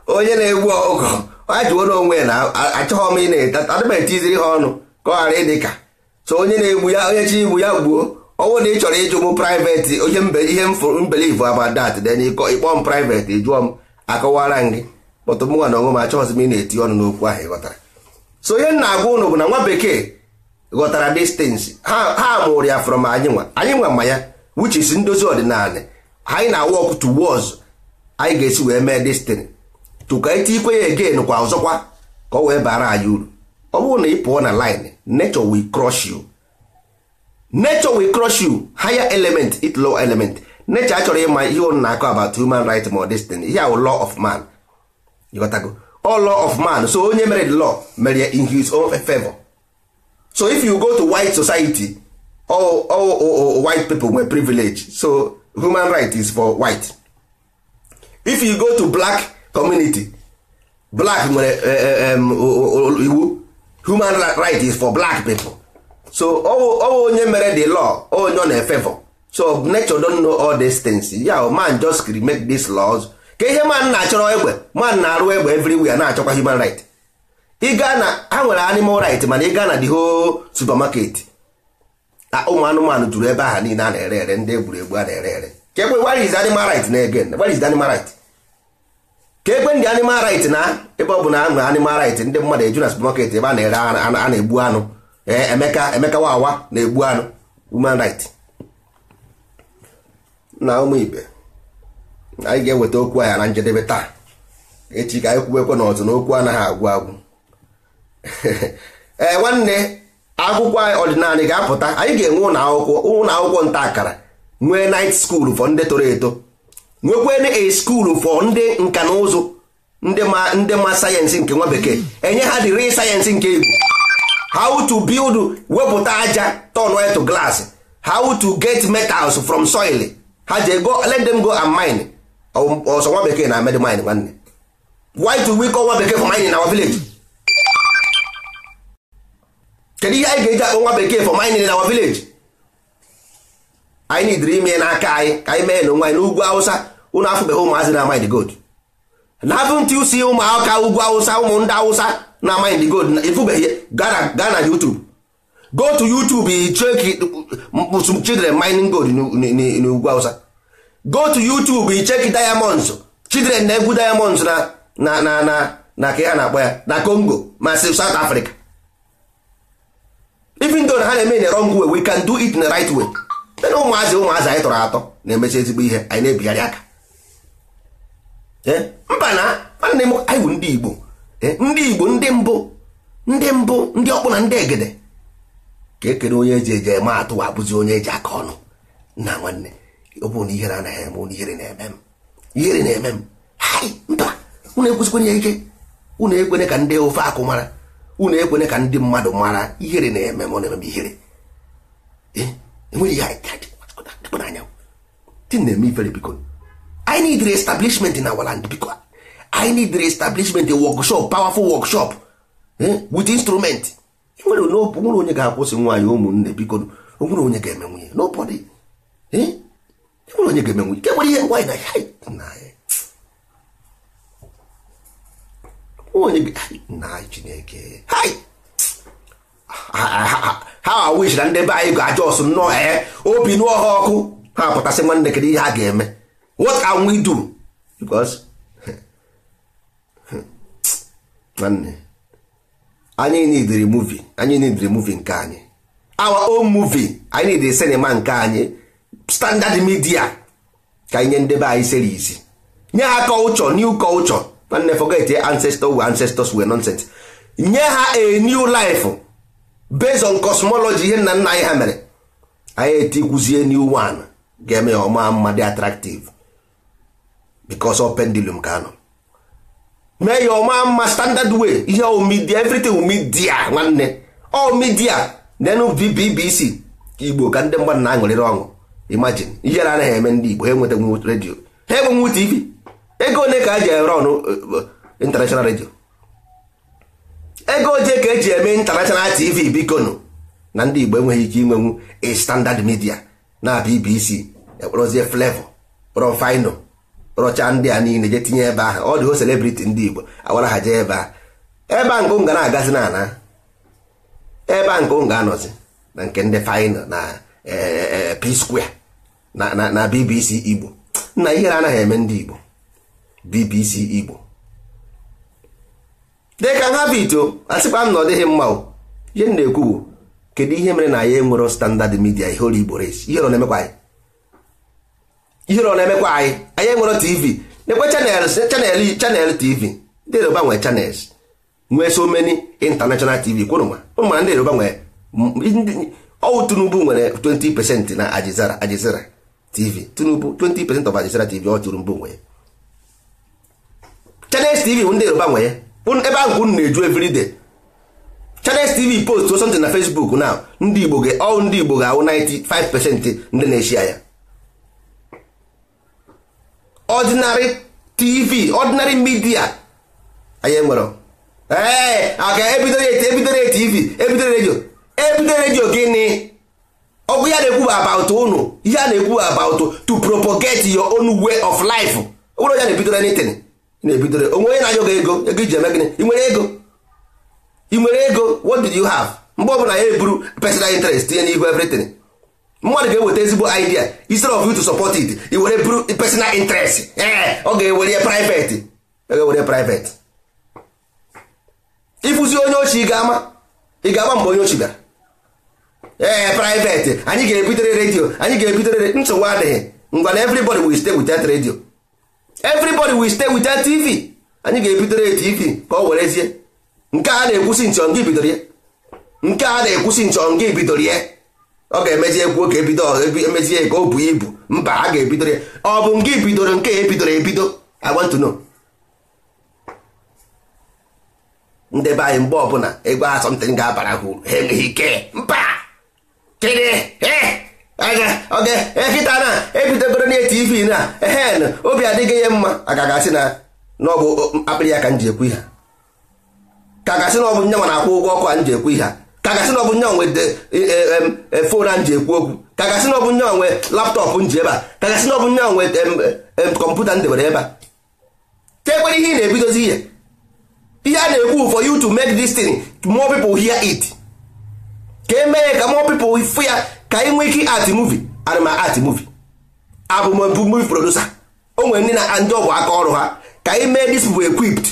onye na-egbu ọgụ ajụwo onwe ya na achọghọ m ị na-adịba etiziri ha ọnụ ka ọ ghara ịdị ka so onye na-egbu ya onye chi igbu ya gbuo ọnwụ na ị chọrọ ịjụ m private ihe ihe mbelivu abadat that then ịkpọ m private jụọ m akọwara gị kpọtụ mụnwa na onwe m achọghọzi m ị na-eti ọnụ n'okwu ahụ ịghọtara so onye na-agwa ụnụ bụ na nwa bekee ghọtara distance ha mụrụ ya from anyị nwa anyị nwa ma ya which ndozi ọdịnala anyị na-walk towards anyị ga-esi wee mee destiny tụka ite ikwe ya again kwa ọzọkwa ka o wee bara anyị uru ọ bụrụ na ị pụọ na line nature will crush you nature will crush you higher element it low element nature achọrọ ịma ihe ọ na-akọ about human right ma destiny ihe ahụ law of man ịghọtago all law of man so onye mere the law mere ya in his own favor so if you go to white society all, all, white people nwere privilege so human right is for white if you go to black community black nwere eh, eh, iwu human right is for black people so ọwụ onye mere the law onye ọ na-efevọ so nature don know all these things ya man just make these laws ka ihe man na-achọrọ egbe man na-arụ egbe everywhere na-achọkwa human right ịga na ha nwere animal right mana ịga na the whole supermarket ụmụ anụmanụ juru ebe aha niile a na-ere ere ndị egwuregwu a na-ere ere chekwe where is animal right na again where is the animal right ka ekwe ndị animal right na ebe ọ bụ na anụ animal right ndị mmadụ eju na supermarket ebe a na-ere a na-egbu anụ emeka emeka wawa na-egbu anụ human right na ụmụ ibe anyị ga-eweta okwu ahịa na njedebe taa echi ka anyị kwuwekwe na ọzọ n'okwu anaghị agwụ agwụ ee nwanne akwụkwọ ọdịnala ga-apụta anyị ga-enwe ụlọ akwụkwọ nta akara nwee night school fọ ndị toro eto nwekwana a school for ndị nka na ụzụ ndị ma ndị ma sayensị nke nwa bekee enye ha dịrị sayensị nke egwu how to build wepụta aja turn white to glass how to get metals from soil ha je go let them go and mine ọsọ nwa bekee na amed mine nwanne why do we call nwa bekee for mining in our village kedu ihe anyị ga-eji akpọ nwa bekee for mining in our village anyị nidiri ime n'aka anyị ka anyị mee n'onwe anyị n'ugwu awụsa unu afụbeghị ụmụazị na mind gold na haven't you ụmụaka ugwu awụsa ụmụ ndị awụsa na mind gold na ịfụbeghị gaa na YouTube go to YouTube check mkpụsụ children mining gold n'ugwu awụsa go to YouTube check diamonds children na-egwu diamonds na na na na ka ha na-akpọ ya na Congo ma South Africa even though ha na-eme in the we can do it in the right way ụmụazị ụmụazị anyị tọrọ atọ na-emechi ezigbo ihe anyị na-ebigharị aka mba na nwanne m anyị bụ ndị Igbo ndị Igbo ndị mbụ ndị mbụ ndị ọkpụ na ndị egede ka ekere onye eji eje eme atụ abụzi onye eji aka ọnụ na nwanne ọ bụrụ na ihere anaghị eme ụnụ ihere na-eme m ihere na-eme m mba ụnụ ekwesịkwenye ike ụnụ ekwene ka ndị ofe akụ mara ụnụ ekwene ka ndị mmadụ mara ihere na-eme m ọ na-eme m ihere enweghị ihe anyị dị na-eme ifere biko i need reestablishment in our land because i need reestablishment a workshop powerful workshop eh, with instrument nwere nwere onye ga-akwụsị nwaanyị ụmụnne biko nwere onye ga-eme nwunye nobody eh? nwere onye ga-eme nwunye nke nwere ihe nwaanyị na ya eh. onye na chineke ha ah, ah, ah, wish na ndị be anyị ga-aja ọsụ nnọọ ee obi nụọ ha ọkụ ha pụtasị nwanne kedu ihe ha ga-eme what can we do because nwanne anyị need removing anyị need removing nke anyị our own movie anyị need sinima cinema nke anyị standard media ka anyị nye ndebe anyị series nye ha culture new culture nwanne forget eh, ancestors were ancestors were nonsense nye ha a new life based on cosmology ihe nna nna anyị ha mere anyị etikwuzie new one ga-eme ya ọma mma dị attractive because of pendulum ka anọ mee ya ọma mma standard way ihe ọ media everything media nwanne ọ oh, media nenu BBC igbo ka ndị mmadụ na-aṅụrịrị ọṅụ imagine ihe na anaghị eme ndị igbo ha enwetanwu redio ha enwenwu tv ego one ka eji ere ọnụ international redio ego oje ka eji eme international tv biko nụ na ndị igbo enweghị ike inwenwu a standard media na BBC ekporozie flavor kpọrọ fino rọcha ndị a niile je tinye ebe ahụ ọ dịho celebrity ndị Igbo awara ha jee ebe a ebe a nkụ ga na-agazi na ana ebe a ga-anọzi na nke ndị final na e, e, e, P Square na BBC Igbo nna ihere anaghị eme ndị Igbo BBC Igbo dịka nha vito asịkwa m na ọ dịghị mma ihe m na-ekwu bụ kedu ihe mere na ya enwero standard media ihe olu Igbo ihe ọ na-emekwa anyị ihe ọ na-emekwa anyị anyị enwere tv nekwe chanels chanel chanel tv ndị yoruba nwee chanels nwee so many international tv kwụrụma ụma ndị yoruba nwee ọwụ tinubu nwere 20 percent na ajizara ajizara tv tinubu 20 percent of ajizara tv ọ tinubu nwee chanels tv bụ ndị yoruba nwee ebe ahụ unu na-eju everyday chanels tv post something na facebook na ndị igbo ga ọ ndị igbo ga-awụ 95 percent ndị na-eshi ya ọdịnarị tv ọdịnarị midia anyị enwere ee aka ebidoro eti tv e ebidoro e redio ebidoro redio gịnị ọgwụ ya na-ekwu about unu ihe a na-ekwu about to propagate your own way of life ụlọ ya na-ebidoro anything na-ebidoro onwe onye na-anyụ gị ego ego iji eme gịnị ị nwere ego ị nwere ego what did you have mgbe ọbụla ya eburu personal interest tinye n'ihu everything mmadụ ga-eweta ezigbo idea instead of you to support it i were personal interest ee eh, ọ ga-ewere private ọ ga-ewere private ịfụzi onye ochi ga-ama ị ga-ama mgbe onye ochi bịara ee eh, private anyị ga-ebitere redio anyị ga-ebitere nsogbu adịghị ngwa na everybody will stay with that radio everybody will stay with that tv anyị ga-ebitere tv ka ọ werezie nke a na-ekwusi nchọ nke bidoro ya nke a na-ekwusi nchọ nke bidoro ya ọ ga-emezi ekwu ka ebido e emezie ka o buo ibu mba a ga-ebido ya ọ bụ nke bidoro nke ebidoro ebido I want to know ndebe anyị mgbe ọbụla ego asọmtin ga-abara ha uru ha enweghị ike mba kịrị ekịta na ebidogoro na tv na hen obi adịghị ya mma agaghị asị na ọ bụ akpịrị ya ka m ji ekwu ihe ka gasị na ọ bụ nyanwa na-akwụ ụgwọ ọkụ a m ji ekwu ihe kagasị na ọ bụ nye onwe fon a ji ekwu okwu kagasị na ọ bụ nye onwe laptọpụ m ji ebe a kagasị na ọ nye onwe kọmputa m debere ebe a tekwere ihe ị na-ebidozi ihe ihe a na-ekwu for you to make this thing more people hear it ka e mee ka more people fụ ya ka ị nwee ike art movie arụma art movie abụmbu movie producer o nwere ndị na ndị ọbụ aka ọrụ ha ka ị mee this bụ equipped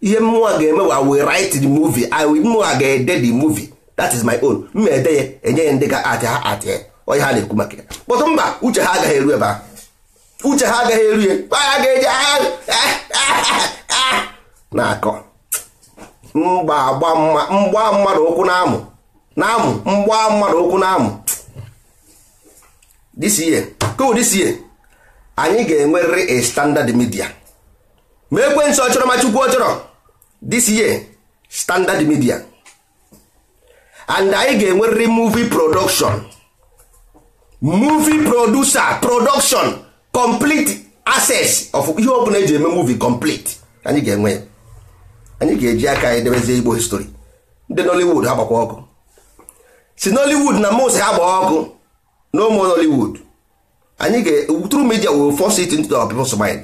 ihe mmụọ ga-eme wa we write the movie I mmụọ ga-ede the movie that is my own m na-ede ya enye ya ndị ga atị ha atị ya onye ha na-ekwu maka ya kpọtụ mba uche ha agaghị eru ebe ahụ uche ha agaghị eru ya ya ga-eji na-akọ mgba mgba mmadụ ụkwụ na-amụ na-amụ mgba mmadụ ụkwụ na-amụ disiye kụ disiye anyị ga-enwerịrị a standard media ma ekwe nsọ chọrọ ma chukwu ọ chọrọ disiye standard media and anyị ga-enwerịrị movie production movie producer production complete access of ihe ọbụla eji eme movie complete anyị ga-enwe anyị ga-eji aka anyị debezie igbo history ndị nollywood ha gbakwa ọkụ si nollywood na most ha ọkụ no more nollywood anyị ga through media will force it into our people's mind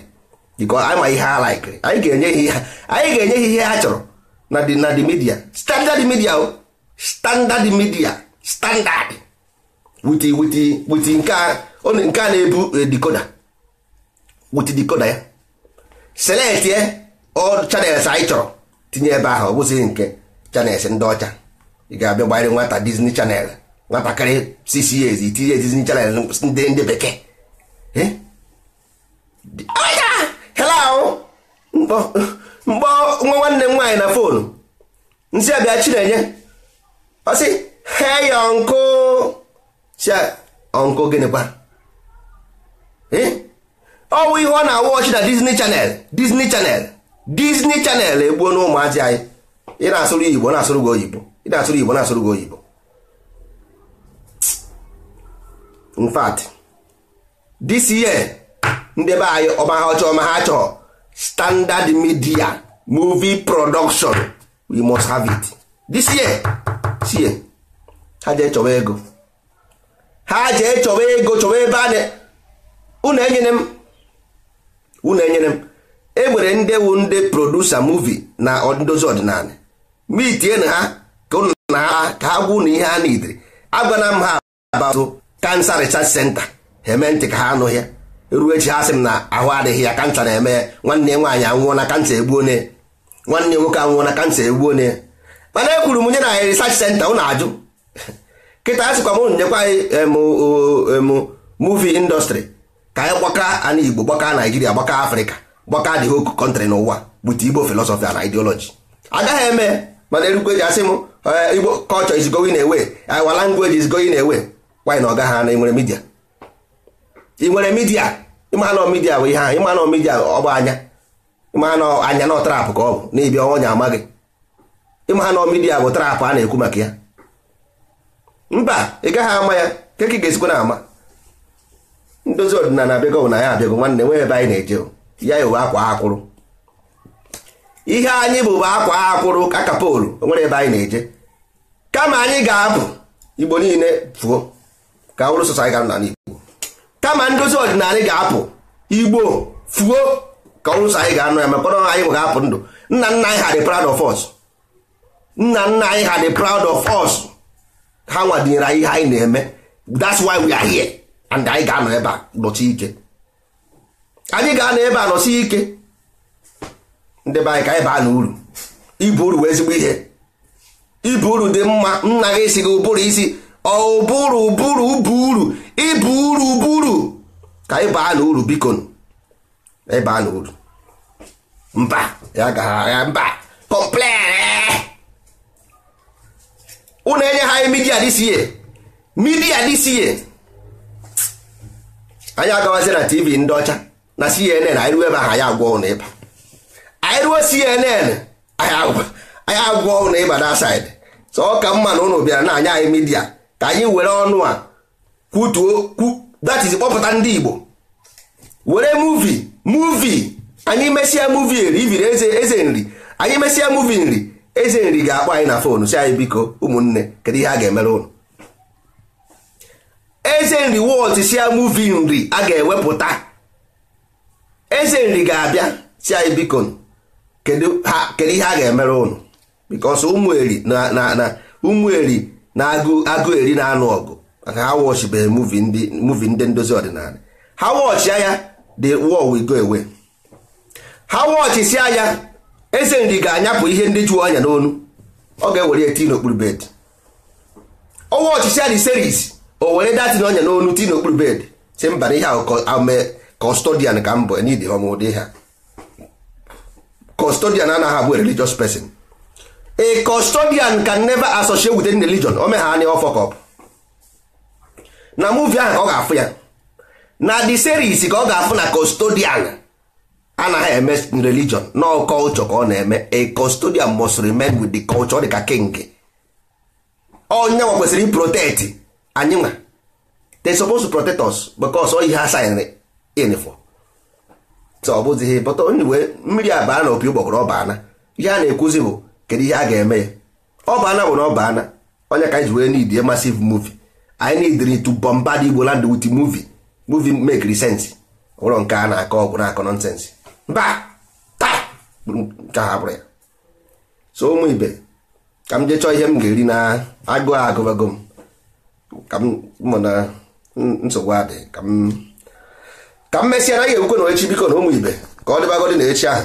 because anyị ma ihe ha like anyị ga-enye ihe ha anyị ga ihe chọrọ na the na media standard media o standard media standard wuti wuti nke a oh, na-ebu eh, dikoda wuti dikoda ya select ye all channels anyị chọrọ tinye ebe ahụ ọ nke channels ndị ọcha ị ga-abịa gbanyere nwata Disney Channel nwatakịrị six years itinye Disney Channel ndị ndị bekee hello mkpọ nwa nwanne m nwaanyị na fonu nsị abịa Chinenye ọ sị ya ọnkụ si ọnkụ gịnịkwa ọwụ ihe ọ na-awụ ọchị na Disney Channel Disney Channel Disney Channel egbuo na ụmụazị anyị ị na-asụrụ Igbo na-asụrụ gị oyibo ị na-asụrụ Igbo na-asụrụ gị oyibo in fact this year ndị anyị ọma ha ọchọ ọma ha chọọ standard media movie production we must have it this year sie ha jee chọwa ego ha jee chọwa ego chọwa ebe a unu enyere m unu enyere m enwere ndị wu ndị produsa muvi na ndozi ọdịnala mitie na ha ka unu na ha ka ha gwa unu ihe ha nidiri agwana m ha abatụ kansa research center ha eme ntị ka ha anụ ya ruo echi ha sị m na ahụ adịghị ya kansa na-eme nwanne nwaanyị anwụọ na kansa egbuo nwanne nwoke anwụọ na kansa egbuo mana e kwuru m nye na research center ụnụ ajụ kịta a sịkwa m ụnụ nyekwa anyị muvi industry ka anyị gbaka ana Igbo gbaka Naijiria gbaka Afrịka gbaka the whole country n'ụwa with Igbo filosofi na ideology agaghị eme mana erukwe ji asị m Igbo kọlchọ is going away eh, our language is going away why na ọ gaghị ana ịnwere midia ị nwere midia ịma na midia bụ ihe ahụ ịma midia ọ anya ịma na anya na trap ka ọ bụ n'ibia ọnya amaghị ịma na midia bụ trapụ a na-ekwu maka ya mba ị gaghị ama ya keke ị ga-esikwa na ama ndozi ọdịnala abịago na ya abịago nwanne nwee ebe anyị na-eje ya ewe akwa akwụrụ ihe anyị bụ bụ akwa akwụrụ ka kapolu nwere ebe anyị na-eje kama anyị ga-abụ igbo niile fuo ka ọrụ sọsọ anyị gara n'ala igbo kama ndozi ọdịnala ga-apụ igbo fuo ka ọrụ sọsọ anyị ga-anụ ya maka ọrụ anyị bụ ga-apụ ndụ nna nna anyị ha dị proud of us nna nna anyị ha dị proud of us ha nwadenyere anyị ihe anyị na-eme that's why we are here and anyị ga-anọ ebe a nọchi ike anyị ga-anọ ebe a nọsi ike ndị be anyị ka anyị baa n'uru ibu uru ezigbo ihe ibu uru dị mma nna gị si gị ụbụrụ isi ọbụrụ ụbụrụ ụbụ uru ibu uru ụbụrụ ka anyị baa n'uru uru biko ịbaa na uru mba ya gaghị agha mba kọmplen ụnụ enye ha anyị midia this year midia this year anyị agawazi na tv ndị ọcha na cnn anyị ruo ebe ahụ anyị agwọ ụnụ ịba anyị ruo cnn anyị agwọ ụnụ ịba na said so ọ ka mma na ụnụ bịara na anyị anyị midia ka anyị were ọnụ a kwutuo datiz kpọpụta ndị igbo were muvi muvi anyị mesịa muvi eri iviri eze nri anyị mesịa muvi nri eze nri ga-akpọ anyị na fonu si anyị biko ụmụnne kedu ihe a ga-emere ụnụ eze nri wọt si ya muvi nri a ga-ewepụta eze nri ga-abịa si anyị biko kedu ihe a ga-emere ụnụ bikos ụmụeri na na ụmụeri na agụ eri na-anụ ọgụ maka ha wọchibeghị muvi ndị ndozi ọdịnala ha wọchị ya the war will go ha eze nri ga-anyapụ ihe ndị jụọ anya n'onu ọ ga-ewere tii n'okpuru bed ọnwa ọchịchị adị seris o were datin ọnya n'onu tii n'okpuru bed si mba na ihe ahụ kọstodian ka mbụ nid ọmụdị ha kọstodian anaghị abụ religious pesin a kọstodian can never associate with any religion o megha anya ọfọkọp na muuvi ahụ ka ọ ga-afụ ya na the series ka ọ ga-afụ na kọstodian. anaghị eme religion no culture ka ọ na-eme a custodian must remain with the culture dị ka king onye nwa kwesịrị protect anyị nwa they supposed to protect us because ọ ihe ha signed in for so ọ bụzi bọta onye we mmiri abaa na opi ụgbọgọrọ ọbaana ihe a na-ekwuzi bụ kedu ihe a ga-eme ya ọbaana bụ na onye ka anyị ji wee need massive movi anyị need to bombard Igbo land with movie movie make sense ụlọ nke a na-akọ ọgwụ na-akọ nonsense mba ha bụrụ ya so ụmụ ibe ka m jee ihe m ga-eri na agụụ agụgụ m ka m mụ na nsogbu adị ka m mesịa naghị ekwukwe na echi biko na ụmụ ibe ka ọ dịbagodị na echi ahụ